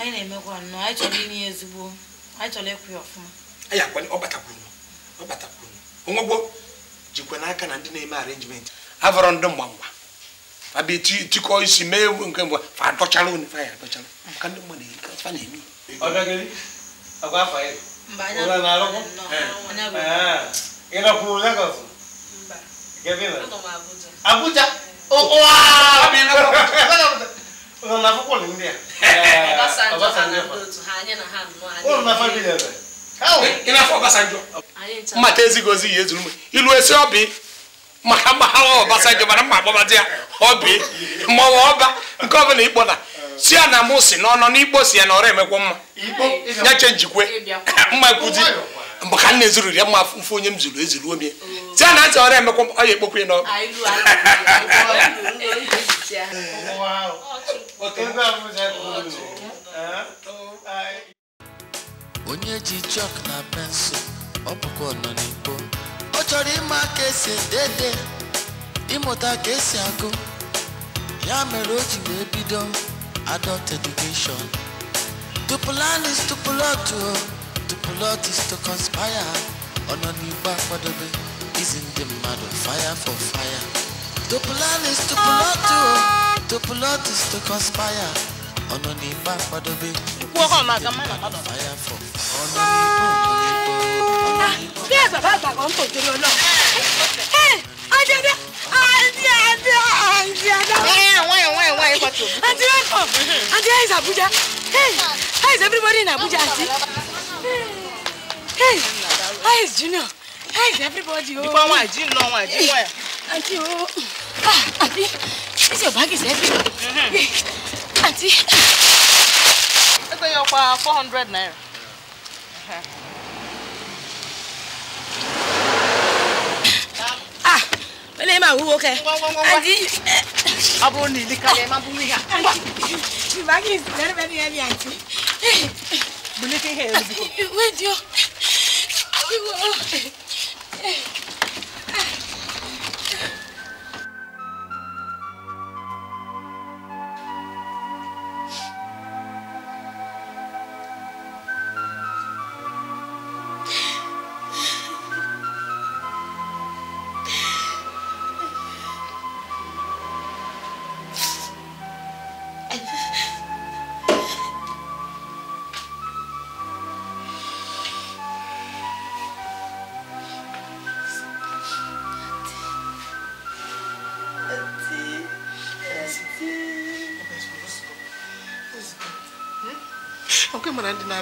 anyị na ya jikwa n'aka na ndị na-eme avọrọ ndị abi ti ti ko isi mɛ ewu nkan bɔ fa dɔtsalo ni fa yɛ dɔtsalo kan ne mɔ de ka fa ne mi. ɔdɔkɛli a ko a fa ye o la n'alɔ kɔ yɛlɛ kuru la ka so gɛbi la abuja o wa abi ne ko o na fɔ ko nin de yan Ọbásanjọ́ o na fa bi yɛlɛ. i n'a fɔ Ọbásanjọ́ n ma tɛ ezi gozi yezu numu ilu esi ɔbi. maka mgbaghawa Ọbasanjọ mara mma agbabadi ya ọbi maọwa ọba nke ọbụla ịkpọda si ya na mụ si n'ọnọ n'ikpo si ya na ọrụ emekwa mma nyache njikwe mma nkuzi mgbe ka m na-ezuru ya mma mfe onye m zuru ezuru omie si ya na ntị ọrụ emekwa mma ọ ya ekpokwa ya onye ji chọk na pensụl ọ bụkwa ọnọdụ. torí ma kesi dede ịmụta ka esi agụ ya mere o ji wee adult education the plan is to plot o the plot is to conspire ọnọ n'igbe akwadobe izi ndị mmadụ fire for fire the plan is to plot o the plot is to conspire ọ̀nà ní bá padà bẹ́. ikú ọkọ ọmọ àgàn má nàbàdàn. fàyà fọ ọ̀nà ní kò ní kò ọ̀nà ní kò. bí ẹgbẹ́ bá gbàgbọ́ ń tòjú lọ náà. ẹ ọjọ́dẹ àǹtí àǹtí àǹtí àdáwọ̀. ẹ àwọn ẹ̀wọ̀n ẹ̀wọ̀n ẹ̀kọ́ tó. àǹtí welcome àǹtí how is Abuja hey how is everybody in Abuja àǹtí hey how is Junior how is everybody. ìfọwọ́n àjí ń lọ wọn àjí wọ̀ ẹ̀. àǹtí o àǹtí this your bag is heavy. Mm-hmm. Auntie. I tell you, 400 naira. Ah, when am I who okay? Auntie. Abro ni ni kale ma bumi ha. You back is very very heavy, Auntie. Bulletin here. Wait, yo. We will.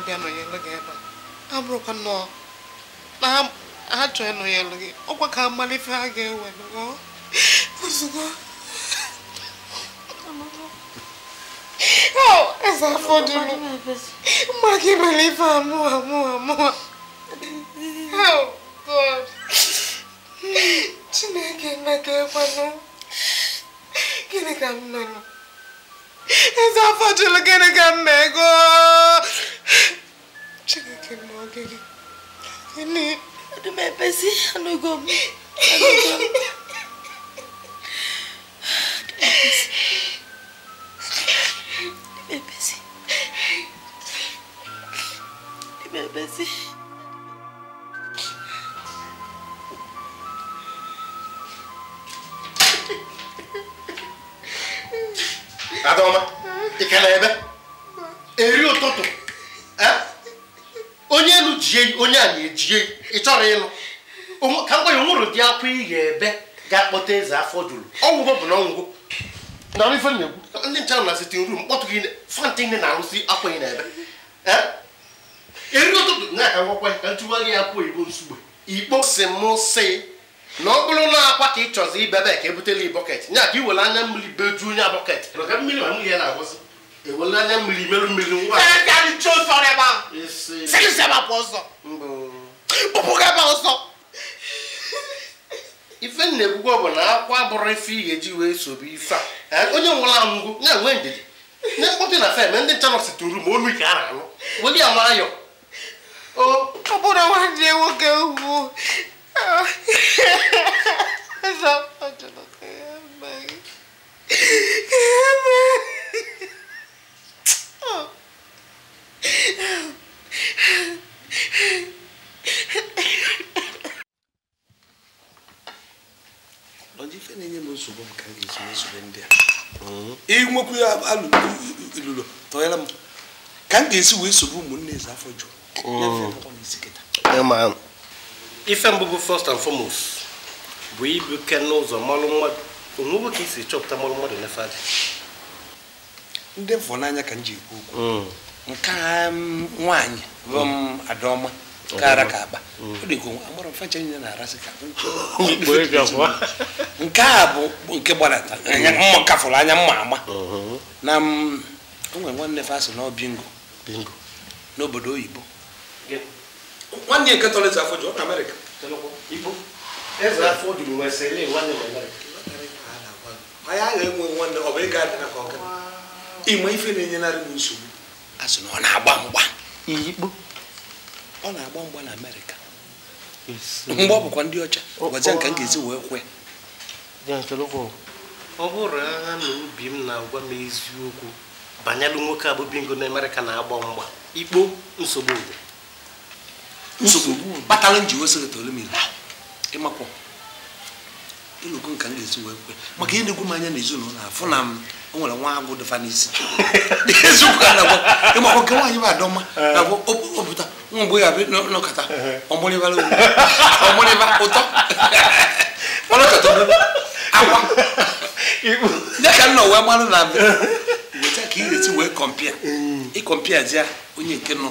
na nọnyelụ gị ebe a abụrụkwa nnọọ na ha gị ọkwa ka amala ha ga-ewe ozugbo eze afọ gị mere ife chineke na ka ekwanụ gịnị ka m E fa facile che ne cammego. C'è che mo che ne... Che ne... Di me pesi a noi come... A noi come... Di me pesi. Di me pesi. Di me pesi. Adaoma ikele ebe eri ụtụtụ onye elu jie onye a na-ejie ị chọrọ ịlụ ka mgbe ya nwụrụ dị akwa ị ebe ga-akpọta eze afọ juru ọgwụgwọ bụ na ọgwụgwọ na ife na-egwu ndị nche na sitin rum kpọtụ gị fanta ndị na-arụsi akwa ị na-ebe eri ụtụtụ na-aka ngwakwa ka ntụwa gị akwa oyibo nsugbe ikpo si m si na ọ bụrụ na akwa ka ị chọzi ibebe ka ebutela bọket nya ka i were anya mmiri bejuo nya bọket ewere anya mmiri meru mmiri nwa ife na-ekwukwe bụ na akwa bụrụ ife ị ga-eji wee sobe ife a onye nwụrụ anwụgo ya nwee ndidi ndị mkpọtụ na fem ndị ncha nọsi tụrụ ma olu ka a na-anụ weli ya mara ya ọ bụrụ nwanne nwoke ugwu Sapa cuma kayak baik. Kayak baik. ife na-enye m nsogbu ndị a inwekwu ya alụlụ tọnyere m ka m ga-esi wee sogbu ụmụnne eze afọ jụrụ ife mbụ bụ first and foremost bụ ibu ke n'ụzọ mmalụ mmadụ onwegwo ka isi chọpụta mmalụ mmadụ n'efe adị ndị mfọ n'anya ka m ji ekwu okwu nke nwaanyị bụ hmm. m adaọma kara ka akpa ọ dị agbara na ka nke a bụ nke gbadata mma kafụrụ anya mma ama hmm. na nwanne na bingo n'obodo oyibo nwanne nke tọlịta afọ ọ na Amerịka eze afọ odibo wee sị ele nwanne wee anyị agha enwe nwanne ọ bụ ịga adịna ka ọga ịma ife na-enyenarị m nsogbu a sị na ọ na-agba mgba iyikpo ọ na-agba mgba na amerịka mgbe ọ bụkwa ndị ọcha gwazie oh, nka m oh. ga-ezi wee kwe ọ bụrụ agha na obi m na-agwa m eziokwu banyelụ nwoke bingo na amerịka na-agba mgba ikpo nsogbu nsogbu kpatara njiwe sekretọri mmiri ịmakwa ịlụkọ nka m ga-esi wee kwe maka ihe na-egwu m anya n'ezinụlọ afọ na m o nwere nwa agwụ dịfa n'isi ịmakwa nke nwaanyị bụ adọma na-agwụ opụta nwa mgbe ya nọkọta ọmụrịbara ọmụrịba ụtọ ọnọkọta akwa ya ka m nọ wee mara na weta ka ị ga-esi wee kọmpịa ịkọmpịa ji ya onye nke nọ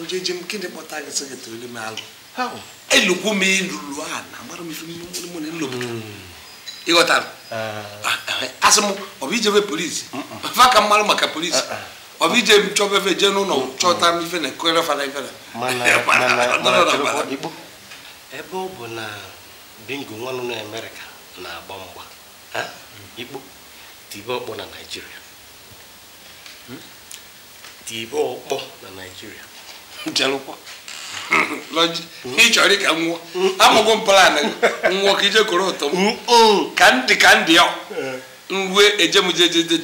njeje m gịnị kpọta gị sị gị tụrụ m alụ elukwu m ilulu ala agbara m ife mụ na ilo ịghọtara eh. ah, eh, eh, asị m ọ ijebe polisi mm, mm. fa ka maka polisi ọbụ ije m chọba efe jee n'ụlọ chọta m ife na fara ebe ọ bụ na bingo nwanụ na amerịka na-agba mgba ikpo tibe ọkpọ na naijiria hmm? tibe ọkpọ na naijiria jelụkwa ịchọrọ ka nwụọ amụgo plan nwụọ ka ije koro ụtọ m ka ndị ka ndị ya mgbe ejemjejeje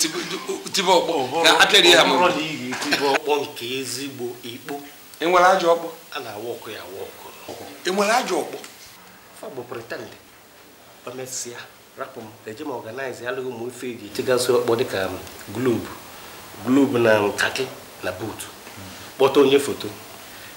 tibe ọkpọ na atịrị ya nke ezigbo ikpo enwere ajọ ọkpọ na enwere ajọ ọkpọ rapụ m eje alụghị ụmụ ife eji ọkpọ dịka um, na nkaki na buutu kpọta onye foto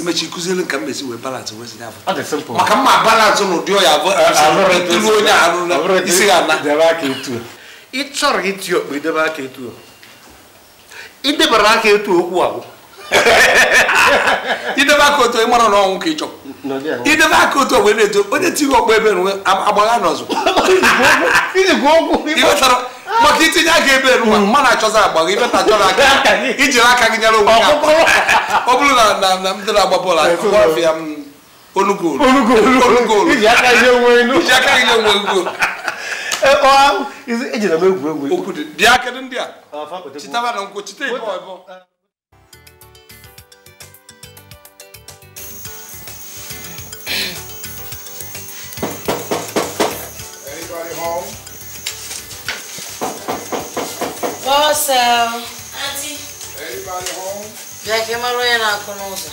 imechi kụzielu ka m esi wee balance wee sinye afọ maka mma balance n'ụdị ọya ilu onye alụla isi ya ana ị chọrọ iti okpu idebe aka etu idebara aka etu okwu ahụ idebe aka otu ịmara na ọnwụ ka ị chọrọ idebe aka otu ogbe na-eto onye tiri ọkpọ ebe agbaga n'ọzọ maka itinye aga ebe eruwa hmm, mana achọzi agba gị ibeta a aka ijiri aka gị nyere onwe gị ọ bụrụ na na m dịrị agba bọọlụ m iji aka nye onwe e, e m egwu Anybody home? What's up? Uh, Auntie. Anybody home? Yeah, came out and I can also.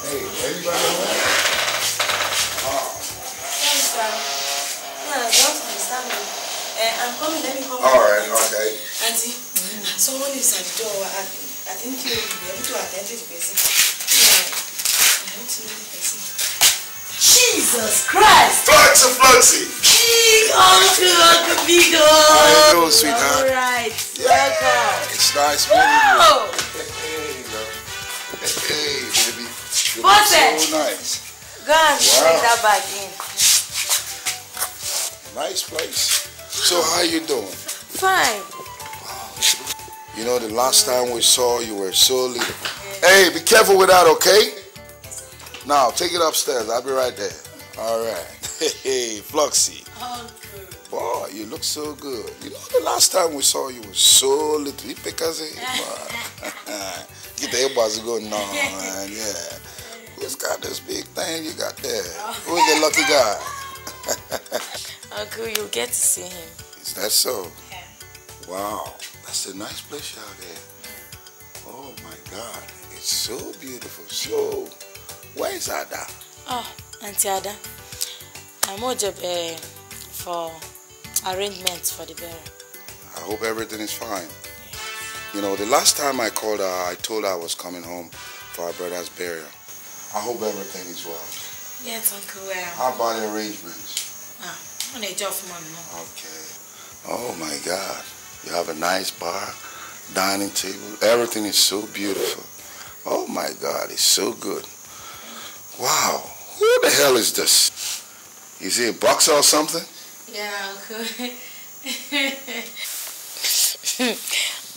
Hey, everybody home? Eh, I'm coming, let me come. All right, okay. Auntie, someone is at the door. I, I think you'll be able to attend to the person. Yeah, I want to know the person. Jesus Christ. Fluxy, Fluxy. King of the Beagle. How you doing, sweetheart? All right. Yeah. Welcome. It's nice meeting Whoa. you. Hey, love. Hey, baby. You look so nice. Go and wow. bring that back in. Nice place. So how you doing? Fine. Wow. You know, the last time we saw you were so little. Hey, be careful with that, okay? Now, take it upstairs. I'll be right there. All right. Hey, Fluxy. Uncle. Boy, you look so good. You know, the last time we saw you was so little. You pick Get the elbows going on. Yeah. Who's got this big thing you got there? Who's the lucky guy? Uncle, you'll get to see him. Is that so? Yeah. Wow. That's a nice place out there. Oh, my God. It's so beautiful. So where is Ada? Oh, Auntie Ada. I'm over eh, for arrangements for the burial. I hope everything is fine. You know, the last time I called her, I told her I was coming home for our brother's burial. I hope everything is well. Yes, Uncle Well. How about the arrangements? Ah, on a job for mom. Okay. Oh my God. You have a nice bar, dining table. Everything is so beautiful. Oh my God, it's so good. Wow, who the hell is this? Is he a boxer or something? Yeah, Uncle.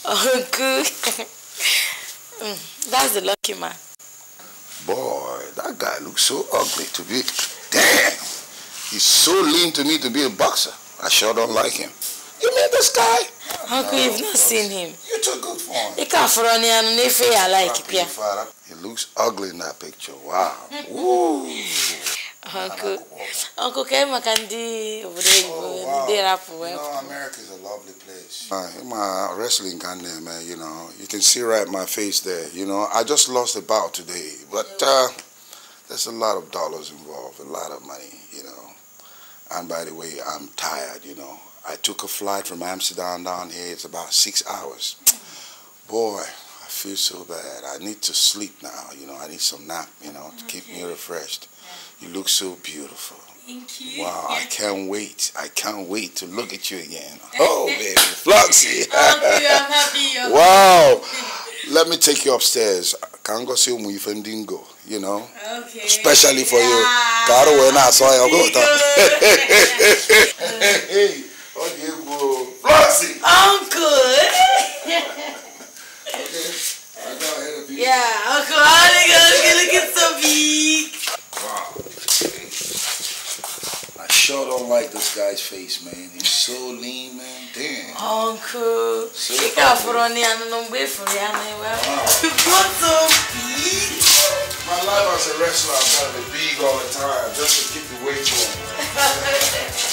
uncle. Oh, mm, that's the lucky man. Boy, that guy looks so ugly to be. Damn! He's so lean to me to be a boxer. I sure don't like him. You mean this guy? Uncle, no, you've not seen him. You're too good for him. He can't run and if I like him. It looks ugly in that picture. Wow. Uncle, Uncle came and Kandi over there. Oh, wow. You know, is a lovely place. Uh, my wrestling Ghana, man, you know, you can see right my face there. You know, I just lost a bout today, but uh, there's a lot of dollars involved, a lot of money, you know. And by the way, I'm tired, you know. I took a flight from Amsterdam down here. It's about six hours. Mm. Boy, feel so bad. I need to sleep now. You know, I need some nap, you know, to okay. keep me refreshed. Yeah. You look so beautiful. Thank you. Wow, I can't wait. I can't wait to look at you again. Oh, baby, Floxy. I'm happy. I'm wow. Let me take you upstairs. Kango si umu ifendingo, you know. Okay. Especially for yeah. you. Karo wena saw I go ta. Hey, oh, you go. Floxy. I'm good. okay. Yeah, alcoholic, I was going get beak. Wow. I sure don't like this guy's face, man. He's so lean, man. Damn. Uncle. So Fica por onde anda não vê, por onde anda You got some beak? My life as a wrestler, I've got to be big all the time just to keep the weight on.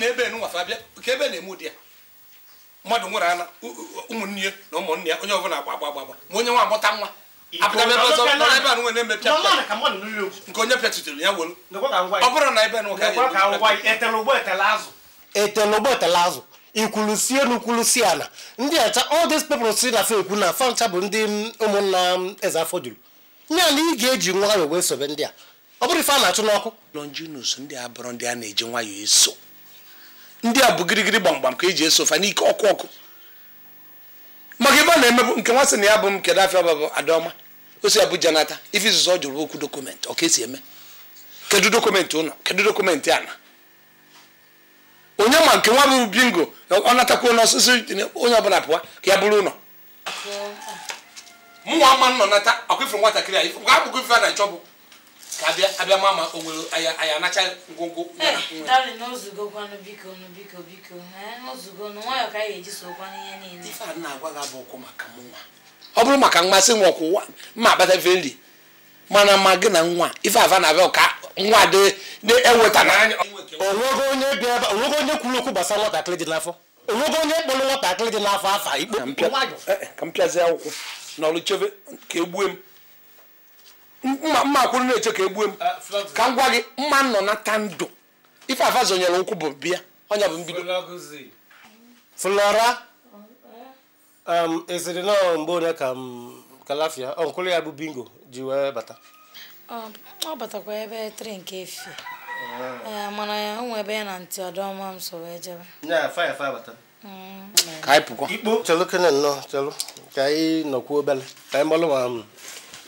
na ebe ka ebe na-eme ụdị ya mmadụ nwere ana ụmụnne ya na ụmụnne ya onye ọbụla agba agba ma onye nwa amụta nwa ebe a nwe na-eme pịa nke onye pịatutere ya wolu ọ bụrụ na ebe etele ụgbọ etele azụ ikwulusie na ikwulusie ndị acha si na ekwu na fancha bụ ndị ụmụnna eze afọ juru nya na ị ga-eji nwayọ wee sobe ndị a ọ bụrụ ife a na-achụ n'ọkụ ndị bụrụ ndị a na-eji nwayọọ eso ndị a bụ gịrịgịrị gbamgbam ka eji eso ofa n'ike ọkụ ọkụ maka ebe a na-emebu nke nwa sị na ya bụ m kedu afịa bụ adaọma osi abuja nata ife izuzo ọ jụrụ okwu dọkụmentị ọ esi eme kedu dọkụmentị ụlọ kedu dọkụmentị ana onye ma nke nwa bụ bingo ọ natakwa n'ọsịsị onye ọbụla pụwa ka ya bụrụ ụlọ mụnwa ama nọ nata akwụfere nwatakịrị a abụghị ife a na-achọ bụ ka abịa ma ma o nwere anacha ngwongwo nwa ọ bụrụ maka mmasị nwa ọkwụ ma agbatafe nri mana ma gị na nwa ife ava na-abịa ka nwa dị na-eweta na. onwego onye kwuru okwu gbasara nwatakịrị dị n'afọ onwego onye kpọrọ nwatakịrị dị n'afọ afa ikpe ka eh, eh, akwụkwọ chebe e mma mma na-eche ka egbue m uh, ka m gwa gị mma nọ ta ndụ ife afa zonyere nkwụ bụ bịa ọnya bụ mbido flora um, esiri na mgbe onye ka m um, kalafia ọnkụlụ ya bụ bingo ji wee bata ọ batakwa ebe tri nke efi ah. eh, mana ya nwe ebe ya na ntị ọdọma m so wee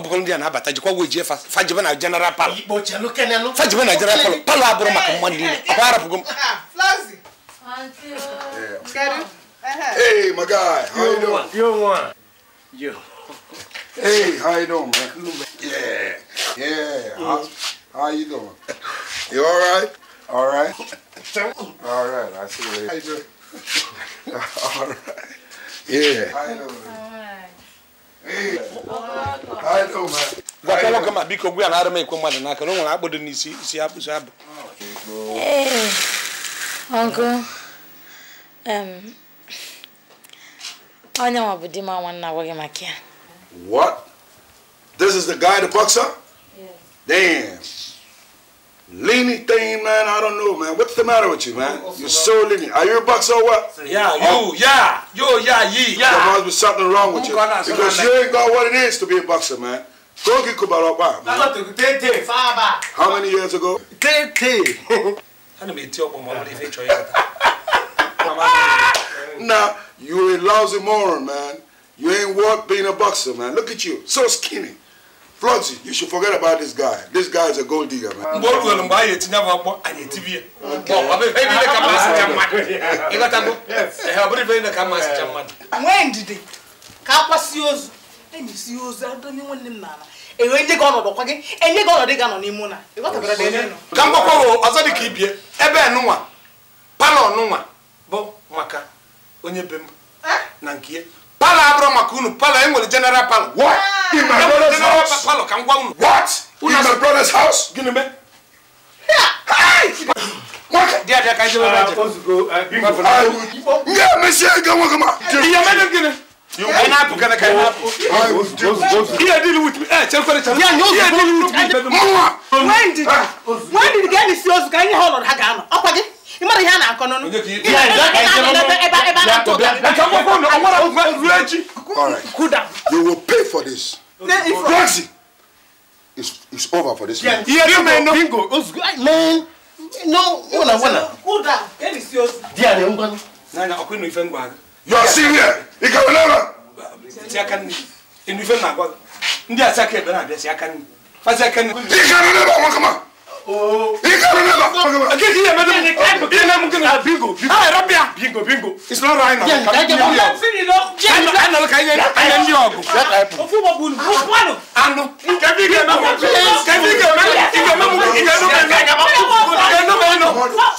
ọ bụrụ ndị a na-abata jikwa wejie fajibe na general palo fajibe na general palo palo abụrụ maka mmadụ niile akwa arapụgo m Hey, my guy, how you doing? You one. You. Hey, how you doing, man? Yeah, yeah. How, mm-hmm. how you doing? You all right? All right. All right. I see you later. How you doing? all right. Yeah. How you doing? gwakwa nwoke ma biko gwa ya na-arụ m ekwe mmadụ n'aka na o nwere akpụdo n'isi isi akpụsị abụ ọgụ eh, onye nwa bụ di m nwanne agwaghị maka ya What? This is the guy that bucks up? Yes. Damn. Leany thing, man. I don't know, man. What's the matter with you, man? You're so leany. Are you a boxer, or what? Yeah, you, oh. yeah. Yo, yeah, ye, yeah. There must be something wrong with you. Because you ain't got what it is to be a boxer, man. Go get Kubarapa, man. How many years ago? Tete. nah, you a lousy moron, man. You ain't worth being a boxer, man. Look at you. So skinny. Flọti, you should forget about this guy. This guy is a gold digger, man. Mgbe o ruo mgbe anyị etinye bụ agbọ, anyị etibi ya. Ọ bụ ife niile ka mmasị cha mmadụ. Ịghọtago? Ọ bụrụ ife niile ka mmasị cha mmadụ. Nwee ndidi ka akwa si ozu. E si ozu adonye nwanne m n'ala. Enwe ndị gị ọnọdụ kwa gị, enye gị ọnọdụ gị anọ n'ime ụna. Ịghọtabara dị ebe nọ. Ka mgbakwa wo ọzọ dị ka ibie, ebe nụnwa, palọ nụnwa bụ maka onye be m eh? na nke ya. Pala abro makunu pala engol general pala. what ah. in my brother's house palo what in my brother's house gini me Yeah, Monsieur, go on, come on. Yeah, madam, get it. You cannot put a kind of. Yeah, deal with me. Eh, yeah, deal with me. Mama, when did ah. when did you get this? You got your hold on Hagama. Up again. You will pay for this. It's, it's over for this man. Yeah, you may Man. No. serious. You Bingo, bingo. Ah, Rabia. Bingo, bingo. It's not right now. Yeah, yeah, yeah. I'm feeling low. I'm not. I'm not. I'm not. I'm not. I'm not. Ofu wa bulu. Ofu ano. Ano. Kabi ke ma mo. Kabi ke ma. Ike ma mo. Ike no ma. Ike ma mo. Ike no ma no.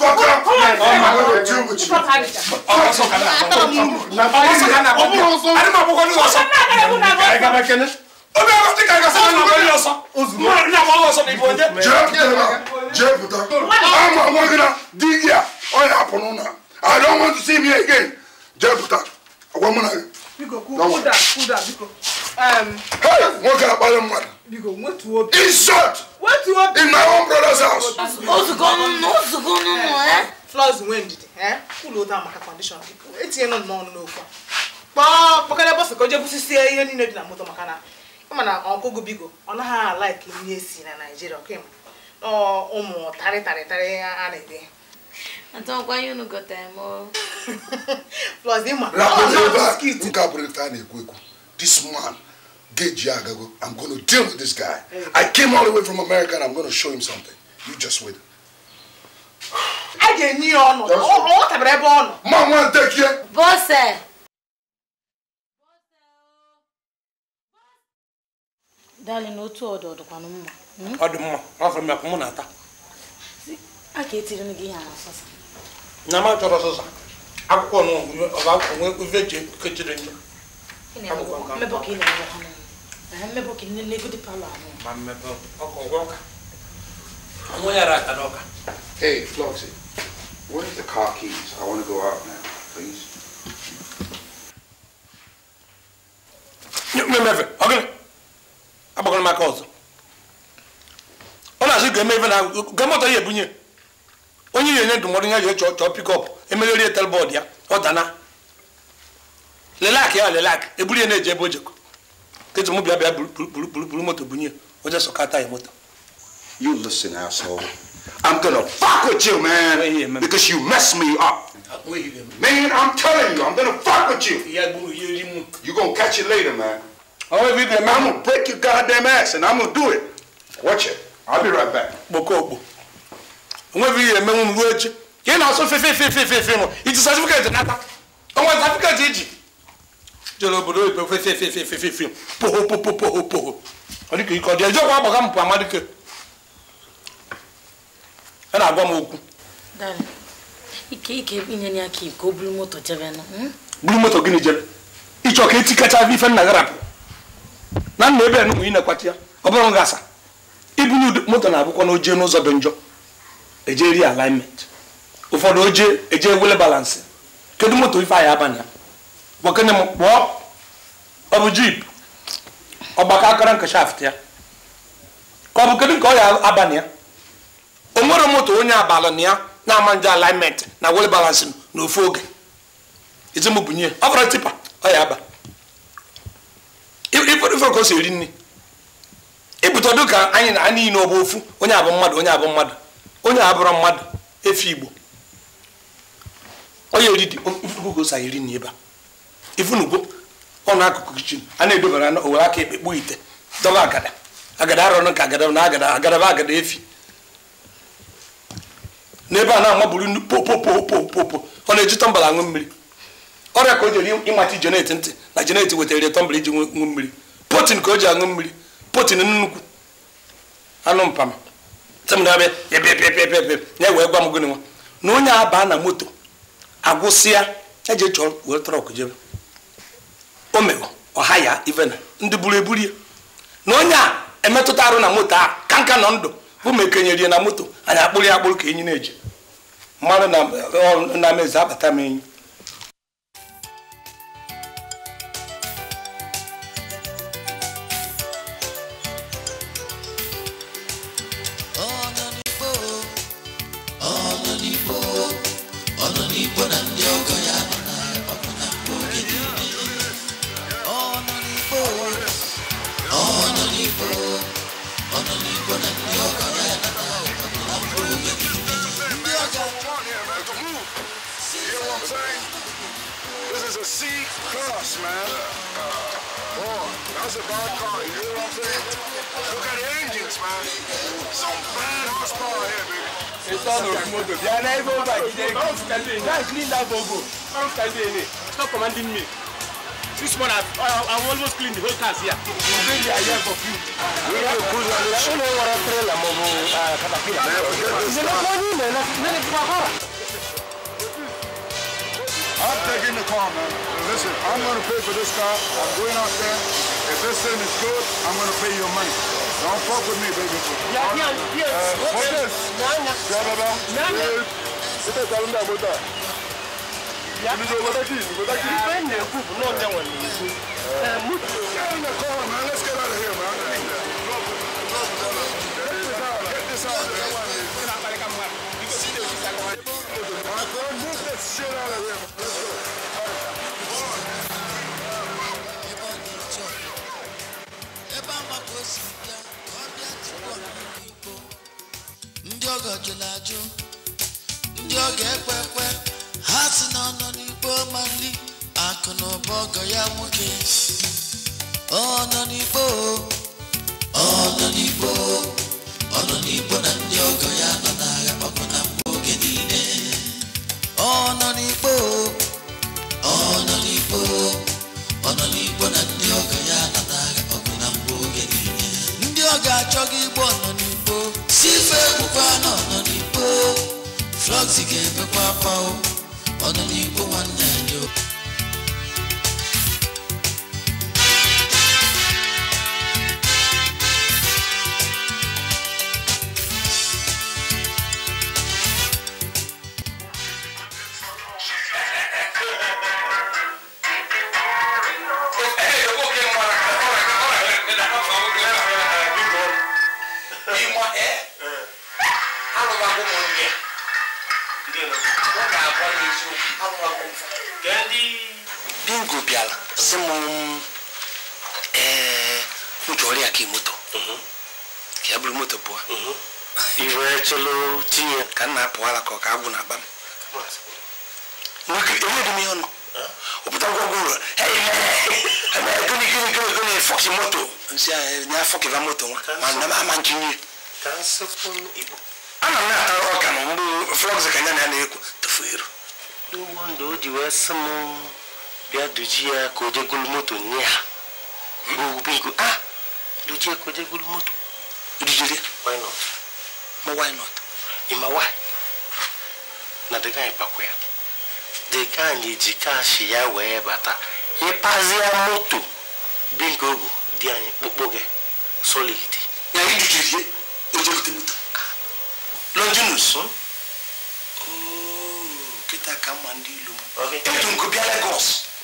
Fuck up. Oh my God. Do what you. Oh, so kana. Na. Oh, so kana. Oh, so kana. Ani ma bo ko ni. So kana. Ike ma kene obi ẹkọ ti kàkà sọ́nà nàbọ̀ ní ọ̀sán mọ̀ ní àwọn ọ̀sán ní ìbọn jẹ́. jẹ́ pùtà jẹ́ pùtà ama wọn gina di yà ọ̀yà àpọ̀nù I don't want to see me again jẹ́ pùtà ọ̀gbọ́n mu nà. biko kúdà kúdà biko. hey nwoke akpali mmadụ. biko wetu obi. insult. wetu obi. in my own brother's house. ozugbo n'ụlọ ozugbo n'ụlọ. Eh? flọs nwee ndidi ụlọ eh? ụda maka kọndishọn etinye nọ n'ọnụ n'okwu a kpọọ kpọkọrọ bọsụ ka o jee ihe niile dị na moto maka na mana ọkụgụ bigo ọ naghị ala ka nri e na naijiria kemgbe na ụmụ tarị tarị tarị a na-ede na-ekwu ekwu this man geji agago i'm gonna deal with this guy i came all the way from america and i'm gonna show him something you just wait a ga-enye ya ọnụ ọ tabara ebe ọ nọ ma nwa ntekie bọse Darling, otu ọdụ ọdụkwanụ hmm? mma. Ọ dị mma, ọ fọrọ mụ na-ata. A ka etiri m gị ihe na sọsa. Na m achọrọ sọsa. Akwụkwọ nụ ọba akwụkwọ nwe eji kechiri njọ. Hey, Floxy, where's the car keys? I want to go out now, please. Nye, nye, agbakọrọ maka ọzọ ọ na-asị ga-eme ife na gamọta ya ebunye onye na-enye ndụmọdụ ya jee chọọ pikọp emegheri etel bọọdụ ya ọ dana lelak ya lelak eburu ya na-eji ebe o jekọ ketu m bịa bịa buru moto bunye oje sọkata ya moto You listen, asshole. I'm gonna fuck with you, man, because you messed me up. Man, I'm telling you, I'm gonna fuck with you. You gonna catch it later, man. I'll be them. I'm gonna break your goddamn ass, and I'm gonna do it. Watch it. I'll be right back. Bokobo. I'm gonna be them. I'm gonna do it. You know, so fe fe fe fe fe fe mo. It is Africa that nata. Oh, what Africa did you? Jolo bodo ipe fe fe fe fe fe fe fe. Poho poho poho poho. Oni ke iko de jo kwa baka mpa amadike. Ana agwa mo oku. Dan. Ike ike inye ni aki ko bulu moto jebe no. Hmm? Bulu moto gini jebe. Icho ke tikacha vi fe na garap. na nna ebe enugwu inekwata ya ọ bụrụ gị asa ibunye moto na-abụkwa na ojee n'ụzọ dị njọ eje ri alignment ụfọdụ ojee eje ewele balansị kedu moto ife anyị abanye ya gbakene m kpọọ ọ bụ jip ọgbakọ akara nke shaft ya ka ọ bụ kedu nke ọ ya abanye ya o nwere moto onye abalị na ya na-ama nje alignment na wele balansị n'ofu oge ezemụ bunye ọ fọrọ tipa ọ ya aba kedu ife ka si eri nri ibute e ka anyị na niile ọ ofu onye abụ mmadụ onye abụ mmadụ onye abụrụ mmadụ efe igbo onye eri gosa eri nri ebe a ifunugwo ọnụ akụkụ kichin a na-edobara owere aka ekpe kpuo ite dọba agada agada arọnụ ka agada na agada agadaba agada efi n'ebe a na-amaburu nnu popopopopopo ọ na-eji tọmbala aṅụ mmiri ọrịa ka o jere ịmata jenet ntị na jenet wetara tọmbala iji ṅụ mmiri potin ka o ji aṅụ mmiri potin nnukwu anụ mpama na-ewe gwa m gịnị nwa na onye a aba na moto agwụsịa eji chọọ were trọk jebe o mere ọha ya ivena ndị buru eburu ya na onye a emetụta arụ na moto a kanka nọ ndụ bụ ma ekenyere ya na moto anyị akpụrụ ya akpụrụ ka enyi na-eji mmadụ na mezi abata m enyi Stop commanding me. This one, I've, I've almost cleaned the whole cars here. for you. I'm taking the car, man. Listen, I'm going to pay for this car. I'm going out there. If this thing is good, I'm going to pay your money. Don't fuck with me, baby. Yeah, yeah, yeah. what is Ita ta runda mota. Ya ni zo wata ki, wata ki. Ba ne ku no ne wani. Eh mutu. Kana ko ma let's get out of here man. Move this shit out of here. Let's go. ndị ọgọ jụrụ ajụ Oh, o ọ ga-ekwe ekwe ha si na ọ nọ n'igbo ma nri akụ na ụba ọgọ ya nwoke ọ nọ n'igbo ọ nọ n'igbo ọ nọ n'igbo na oxygen, papa, oh, on the new one. sị m ee m chọrọ ya ka moto ka ya bụrụ moto pụọ iwe tinye ka nna apụ ka ọ agwụ na-aba m enweghị m ihe ọnụ ụpụta ngwọgwọ ụlọ fọkị moto nsị anya fọkịva moto nwa ma ama ntinye m na-ata ọka na mgbe flọgs ka nya na ya na-ekwu biya dujiya ko je gulmoto niya bugu bigu ah dujiya ko je gulmoto idijire why not ma why not ima why na daga ipakwya daga ni jika shi ya wee bata ịpazia moto bingo ogu dị anyị kpụkpụ gị solid ya idujirie ojebute moto longinus hmm? oh, kịta ka mma ndị ilu m ebutu nkụ bịa Lagos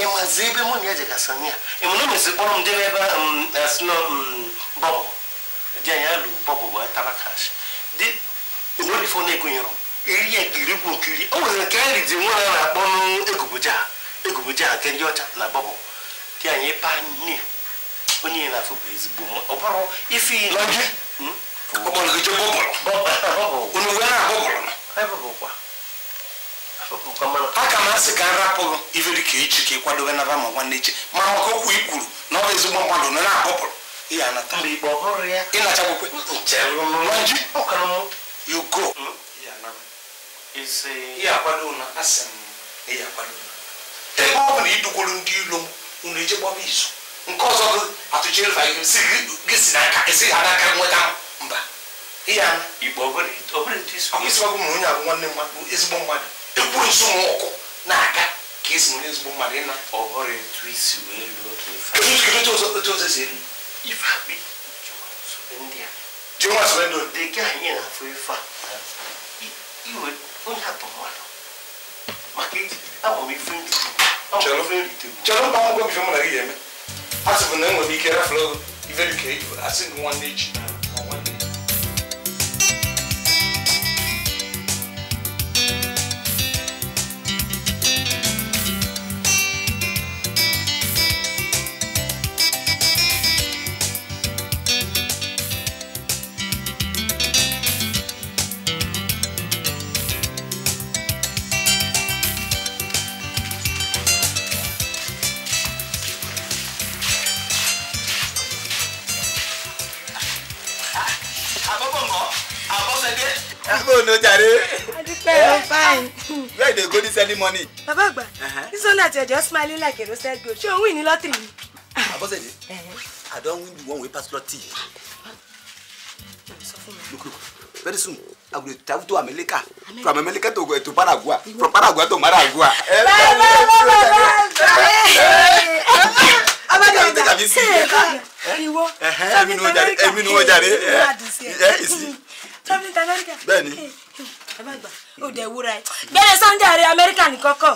emazi ebe mụ na ya jegasị na ya emụna mezi kpọrọ m debe ebe asịnọ e, bọbụ dị anya lụ bọbụ wee taba kash dị enwerifo na-egonyere iri ya nkiri kwu nkiri o nwere nke nri dị nwa na na-akpọ n'egubuja egubuja nke ndị ọcha na bọbụ dị anya ịpa nne onye na-afụ bụ ezigbo mma ọ bụrụ ifi hmm? ọkpọrọ gị je bọbụrụ onye aka m asị ka m rapụ iveri ka echi ka ị kwadobe naba ma nwanne echi ma maka okwu i kwuru na ọ bụ ezigbo mmadụ na na-akpọpụrụ ihe ihe na m ebe ọ bụ na idugwuru ndị ilo m unu eje izu nke ọzọ gị si ha n'aka nweta mba ihe ana igbo ọ bụrụ isi ọ bụ na onye abụ nwanne mmadụ ezigbo ekwensu m ụkwụ na aqui. Eu esi were ezigbo mmadụ ịna ọhụrụ etu isi wee luo ka etu ọzọ si elu jinwa sọ elu dị aqui. Eu na-afụ né? ife a iwe onye atọ mmadụ maka iji agba m ife nrite chọrọ chọrọ mba akwụkwọ ife aqui. Eu gị ga-eme tá tá tá né? a sị bụ na enwere ike rafụlụ ife dị ka asị gị nwanne echi bóònù jàre. adúpẹ́ o eh? fine. where dey go this early morning. bàbá àgbà this one that to just smiling like a roasted goat ṣé òun win ní lọ́tìrì ni. Eh. i don win the one wey pass lottery. look very soon i go dey travel to america from america eh, to paraguay from paraguay to maragua. bàbá bàbá bàbá abájọ ìgbà ìwọ sọfí sọfí kàfí ìwọ àdìsí ẹ traveling to America. bẹ́ẹ̀ni. ẹ má gbà Sunday ààrẹ Amẹ́ríkà ní kọ́kọ́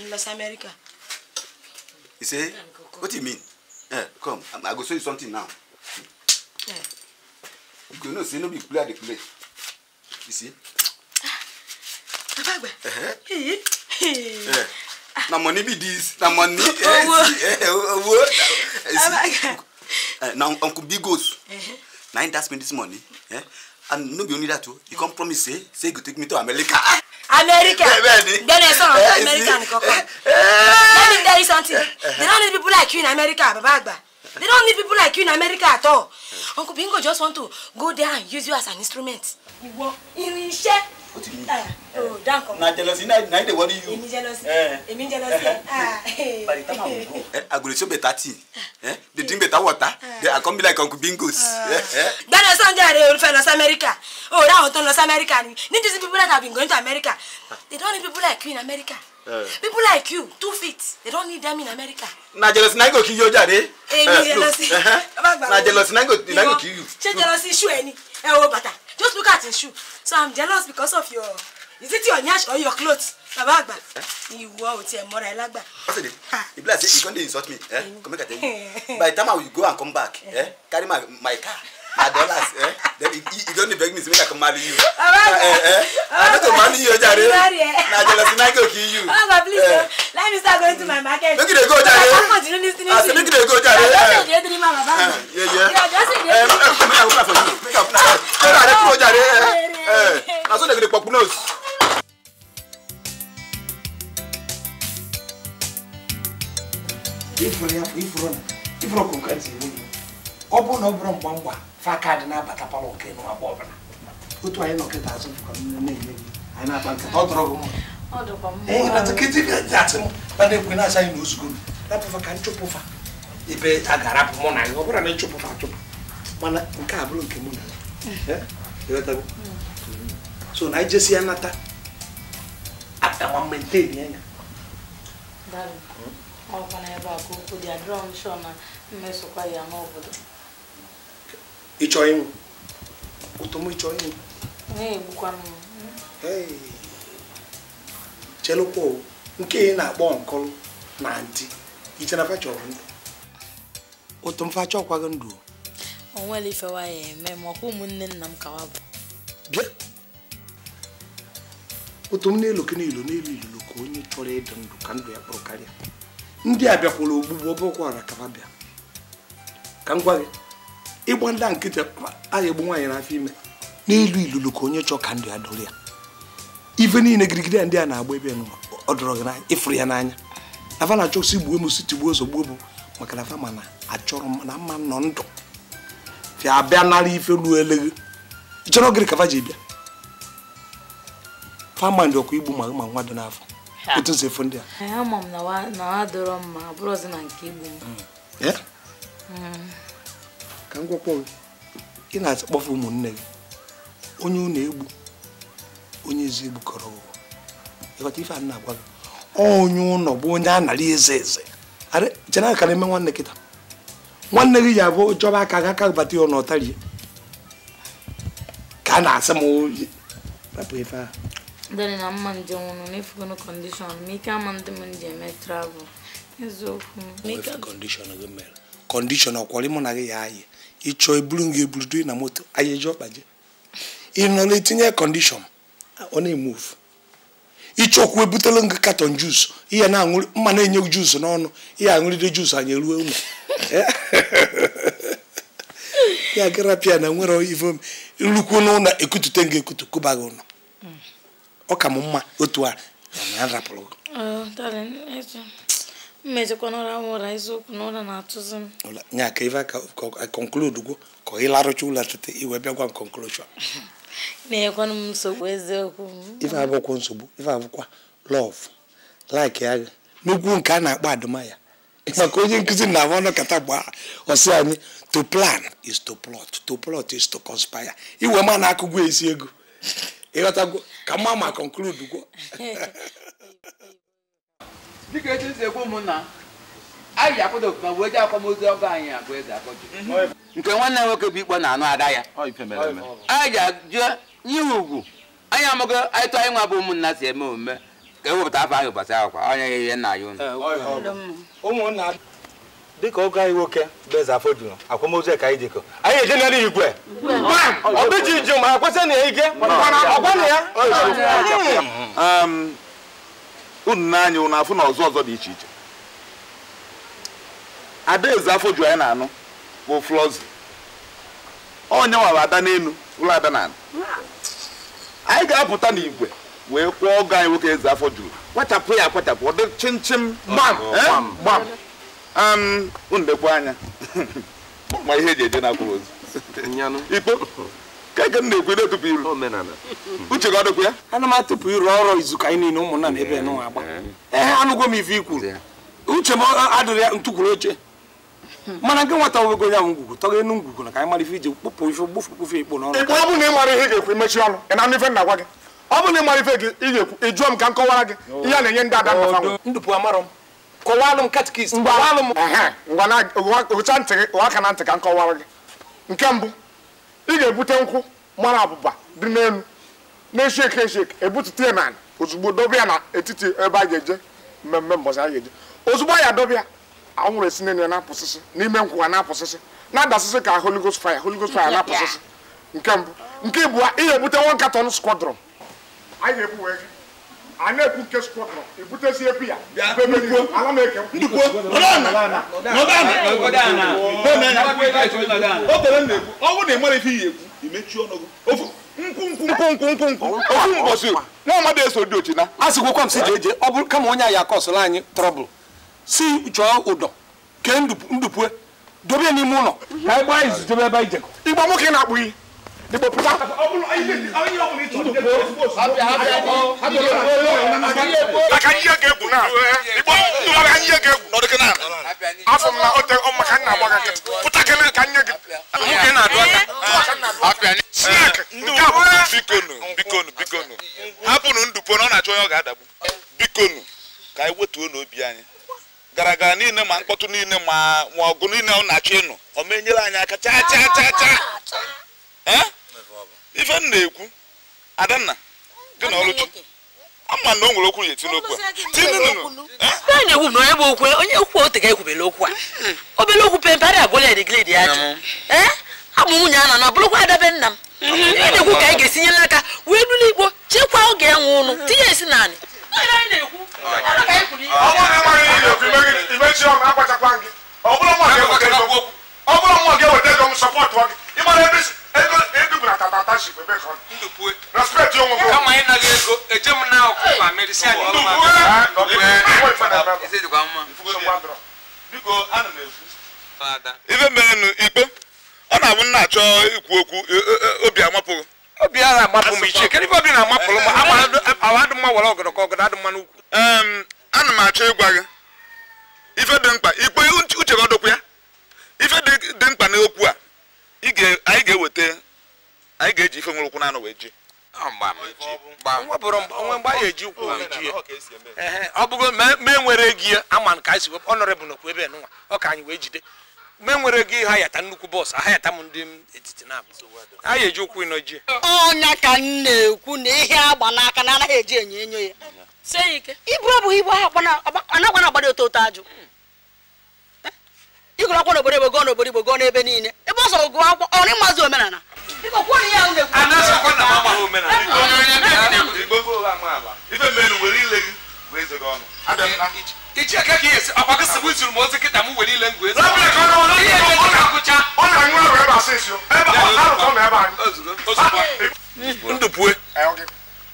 ń lọ sí Amẹ́ríkà. what do you mean eh, yeah, come I go show you something now yeah. you know say no be play I dey play you see. Eh? bàbá àgbà na money be this na money Oh. Oh. Oh. Oh. Eh. owó owó ah, na uncle bigos na he dash me this money. Eh? and no be only that o oh, you come promise say say you go take me to america. america gbẹ́nẹ̀ sọ̀rọ̀ fún america nìkan kan let me tell you something eh, eh. they don't need people like you in america bàbá àgbà they don't need people like you in america at all uncle bingo just want to go there and use you as an instrument. ìwọ irinṣẹ́ o ti ní. o dan kan. na jealousy na na dey worry you. èmi jealousy eh. èmi jealousy. Ah, eh. by the time i go. Eh, agolo beta tea dey ah. drink beta water dey come be like uncle bingos. Ah. gbẹ́dọ̀ sọ́njẹ́ rẹ̀ olùfẹ́ lọ sí amẹ́ríkà o rí àwọn tó ń lọ sí ni need these people that have been going to america they don't need people like you in america. Uh, people like you two feet they don't need them in america. na jealousy na go kill you jare. èmi jealousy. na jealousy na go kill you. ṣé jealousy iṣu ẹ ni ẹ wo bàtà just look at his shoe so i'm jealous because of your is it your nyash or your clothes? baba àgbà ìwọ ò tiẹ̀ mọ́ra ẹ lágbà. ọ̀sẹ̀dẹ̀ ìbílẹ̀ àti ìkọ́ndé insult me eh? come make i tell you by the time i will go and come back eh? carry my my car her dollars eh then you don't don dey beg me to make i come marry you uh, eh, eh. eh? i no go marry you jare na jealousy na go kill you oh god please eh. Oh. let me start going to my market make you dey go jare i say make you dey go jare i don say you dey dream am about eh, me yeah yeah you are just dey dream am make i open am for you make i open am for you jare go jare eh, eh. na so dem go dey popu nose. ifuru ya ifuru na ifuru ọkụkọ ntị ọ bụrụ na ọ bụrụ mgba mgba fa na-abata palọ nke ọbụla otu anyị nọkịta azụ anyị na-akpa nkata ọ dọrọ na ekwe na-asa anyị na napụfa ka nchụpụfa ebe a ga mụ na ya ọ na nchụpụfa achụpụ mana nke a bụrụ nke mụ na ya so na anyị e jesi hmm? ya nata na ebe a ka okwu dị ya ịchọ ịnwụ ụtụmụ ịchọ ịnwụ chelụkwa nke ị na-akpọ nkọlụ na ntị iche na fachọrọ ndụ ụtụ mfacha ọkwaghị ndụ onwere ifewa ya eme ma ụmụnne nna m kawa bụ bịa ụtụ m n'elu kenilu n'elu ka onye chọrọ ịdị ndụ ka ndụ ya karịa ndị a bịakwara ogbugbu ọbụkwara kaba bịa ka m gị ịgba ndị nkịtị aya egbu nwaanyị n'afọ ime n'elu ilulu ka onye chọọ ka ndị a dụrụ ya ife niile girigiri ndị a na-agba ebe ọ dọrọ gị n'anya ịfụrụ ya n'anya afa na-achọ si gbuo m si tigbuo ozugbo bụ maka na afa mana achọrọ na mma nọ ndụ fịa abịa nara ife ruo eleghị ịchọrọ gịrị ka fa ji bịa fama ndị ọkụ igbu ma ma nwa dị n'afọ otu nsi efu ndị a ka m ị na-atị ụmụnne gị onye unu egbu onye ezi egbukọrọ ụwa ịghọta ife a na-agwa gị onye ụlọ bụ onye a nara eze eze chena ka eme nwanne kịta nwanne gị ji abụ chọba aka ga aka bata ya ọ ka a na-asị m rapụ ife ahụ na mma njem ụnụ kọndishọn ma ike ama m eme travel eziokwu kọndishọn na gị ya ịchọọ eburu m eburu na moto anyị eji ọkpa ị nọ na-etinye kọndishọn ọ na-emuvu ịchọkwu ebutela gị katọn juus ihe na-aṅụrị mma na-enye juus n'ọnụ ihe aṅụrịde juus anyị eruo ụmụ ya gara pịa na nwere ivom nrukwu n'ụlọ ekutute gị ekutu kụba gị ụlọ mm. ọ ka m mma otu a na rapụrụ gị oh, mmejikwa n'ụra m ụra eziokwu na ụra na-atụzi m nya ka ife ka conclude gwo ka ị larụcha ụlọ tete iwe bịa gwa m conclusion na m nsogbu eziokwu ife abụkwa nsogbu ife abụkwa lọv laik ya n'ugwu nke a na-akpọ adụmaya maka onye nkụzi na ahụ kata gbaa ọsị anyị to plan is to plot to plot is to conspire iwe ma na-akụgwu esi ego ịghọtago ka mma ma conclude gwo dịka etu esi ekwu ụmụnna anyị ji akwado okpukpe wee ji akwamozu ọba anyị abụ eze akpọju mhm. nke nwanne nwoke bụ ikpọ na-anụ ada ya anyị ji ajụ ihe ugwu anyị amụgo anyị tụ anyị nwa bụ ụmụnna si eme omume ka ewepụta afọ ahụ ụbọchị ahụ kwa onye ya ihe nna ya unu ụmụnna dịka ọgọ anyị nwoke bụ eze afọ juru akwamozu ka anyị dịkọ anyị eje n'elu igwe ọbịji ju ma kwesị na ige ọgwa na ya unu n'anya unu afụ na ọzọ ọzọ dị iche iche adaeze afọ ju anyị na-anụ bụ flọzi onye nwara ada n'elu ụlọ ada na anyị ga-apụta n'igwe wee kwụọ ọgụ anyị nwoke eze afọ juru kpachapụ ya akwachapụ ọ dị chimchim eh, gbam gbam unu anya ma ihe eji eje na akwụrụ ozi. ikpo keke m na-ekwe na-etụpụ iru uche ga ọ ya ana m atụpụ iru ọrụ izu ka anyị niile ụmụnna na ebe nwa agba ee eh. eh, anụgo m ife ikwuru uche m adịrị ya ntụkwuru oche hmm. mana nke nwata nwego onye ahụ ngwugwu tọga ngwugwu na ka anyị mara ife iji kpụpụ ife ikpo n'ọrụ ọ na ị ihe ga-ekwu ọnụ ị na ife na-agwa gị ọ bụ na ị ife gị ga-ekwu ị jụọ m ka m kọwara gị na-enye ndị ada ntị gị na ntị ka m kọwara gị nke mbụ ị ga-ebute nkwụ mara abụba dị n'elu na-esheke esheke ebutute na ozugbo dobe ya na etiti ebe a ga-eje mmemme mbọsị a ga-eje ozugbo ya dobe ya anwụrụ esi n'elu ya na-apụsịsị n'ime nkwụ ha na-apụsịsị na-adasịsị ka Holy Ghost fire Holy Ghost fire na-apụsịsị nke mbụ nke ịbụa ị ga-ebute one katọn squadron anyị ga-ebu wee gị a na-ekwu nke skwọtọrọ ya ala eke m na-ekwu ọnwụ na ịmara ife iyi ekwu ọnụ nwa eso dị ochina a sịgwokwa m si jee eje ọ bụrụ kama onye ya akọsụla anyị trọbụl si chọọ ụdọ kee dobe n'ime ụlọ igba nwoke na-akpụ iyi dìbò púpà. anyị ka ka na a bikonu bikonu bikonu hapụnụ ndụpo na ọ na-achọ onye ọ ga-adagbu bikonu ka anyị wetuo n'obi anyị gara gara niile ma mkpọtụ niile ma ọgụ niile ọ na-achọ ịnụ ọ ma anyị aka ife m na-ekwu adanna gị na ọlụchi ama na o nwere okwu na-eti n'okwu a na-ekwu na onye bụ okwu onye okwu otega ekwubela okwu a hmm. obele okwu pemparị agwụla ya digredi ya jụ hmm. abụ nwunye a na na bụrụkwa adabe nna m ihe hmm. na-ekwu ka anyị ga-esinye esi n'aka wee bụrụ igbo chekwaa oge ya ụnụ tinye esi naanị ọ bụrụ nwa gị eweta ego m sọpọtụ gị ịmara ebe isi bụ e. e na katataship ebe e. ah, ka respect onwe gị kama ịnaghị ego eje m na ọkụkọ medisia ife merenu ikpe ọ na-abụ nna achọ ikwu okwu obi amapụghị obi agha amapụ m ichie kedụ ife obi na amapụ m awa adị mma were ọgọdọ ka ọgọdọ adị mma n'ukwu ana m achọ ịgwa gị ife dị mkpa ikpe uche gị ọdụkwu ya ife dị mkpa n'okwu a anyị ga-eweta anyị ga-eji ife nwere ụkwụ na anụ wee ji onwe mgbe a eji ụkwụ ji ọ bụgo mee nwere gị ama ka anyị si wepụ bụ n'okwu ebe nụnwa ọ ka anyị wee jide mgbe nwere gị ha yata nnukwu bọọsụ aha yata m ndị etiti na ha ya eji ụkwụ ịnọ ji ọnya ka m na-ekwu na ihe agba n'aka na anaghị eji enyo enyo ya iburu ọ bụghị ha anagbana oto oto ajụ ịgụrụ akwụkwọ n'obodo igbo gụọ n'obodo n'ebe niile ebe omenala anasakwa na mama hụ mena igbogo ụgha amaala ife mere were ile gị wee zego ọnụ ichi aka ka ihe ọkwa gị sịbụ zuru m ozi kịta m were ile ngwe ndụ pue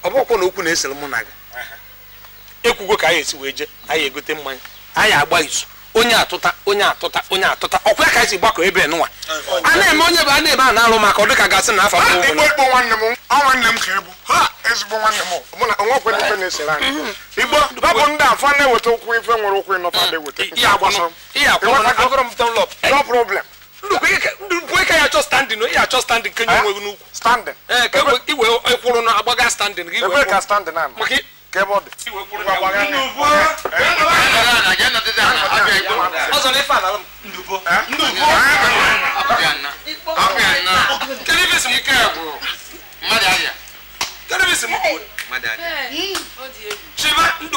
ọ bụkwa na okwu na-esere mụ na gị ekwugo ka anyị esi wee jee anyị egote mmanya anyị agba izu onye atụta onye atụta onye atụta ọkwa ka esi gbakọ ebe nwa a na-eme onye bụ a na-ebe a na-alụ maka ọ dịka gasị na afọ nwanne m m ka ebu ha ezigbo nwanne m na mhm. ọ bụ ndị na-eweta ife nwere ya achọ achọ kenye onwe gị n'ukwu standing eh, iwe e na agbaga standing gị maka kebọọdụ cheba ndụpụ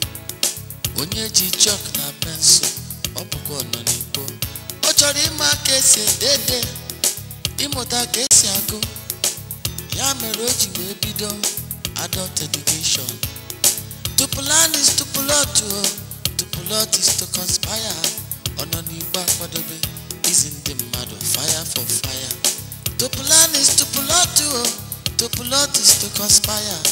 onye ji chọk na pensụl ọ bụkwa nọ n'igbo ọ chọrọ ịma ka esi edede ịmụta ka esi agụ ya mere o ji wee bido adult education to plan is to plot o to plot is to conspire ọ nọ n'igbo akwadobe izi ndị mmadụ fire for fire to plan is to plot o to plot is to conspire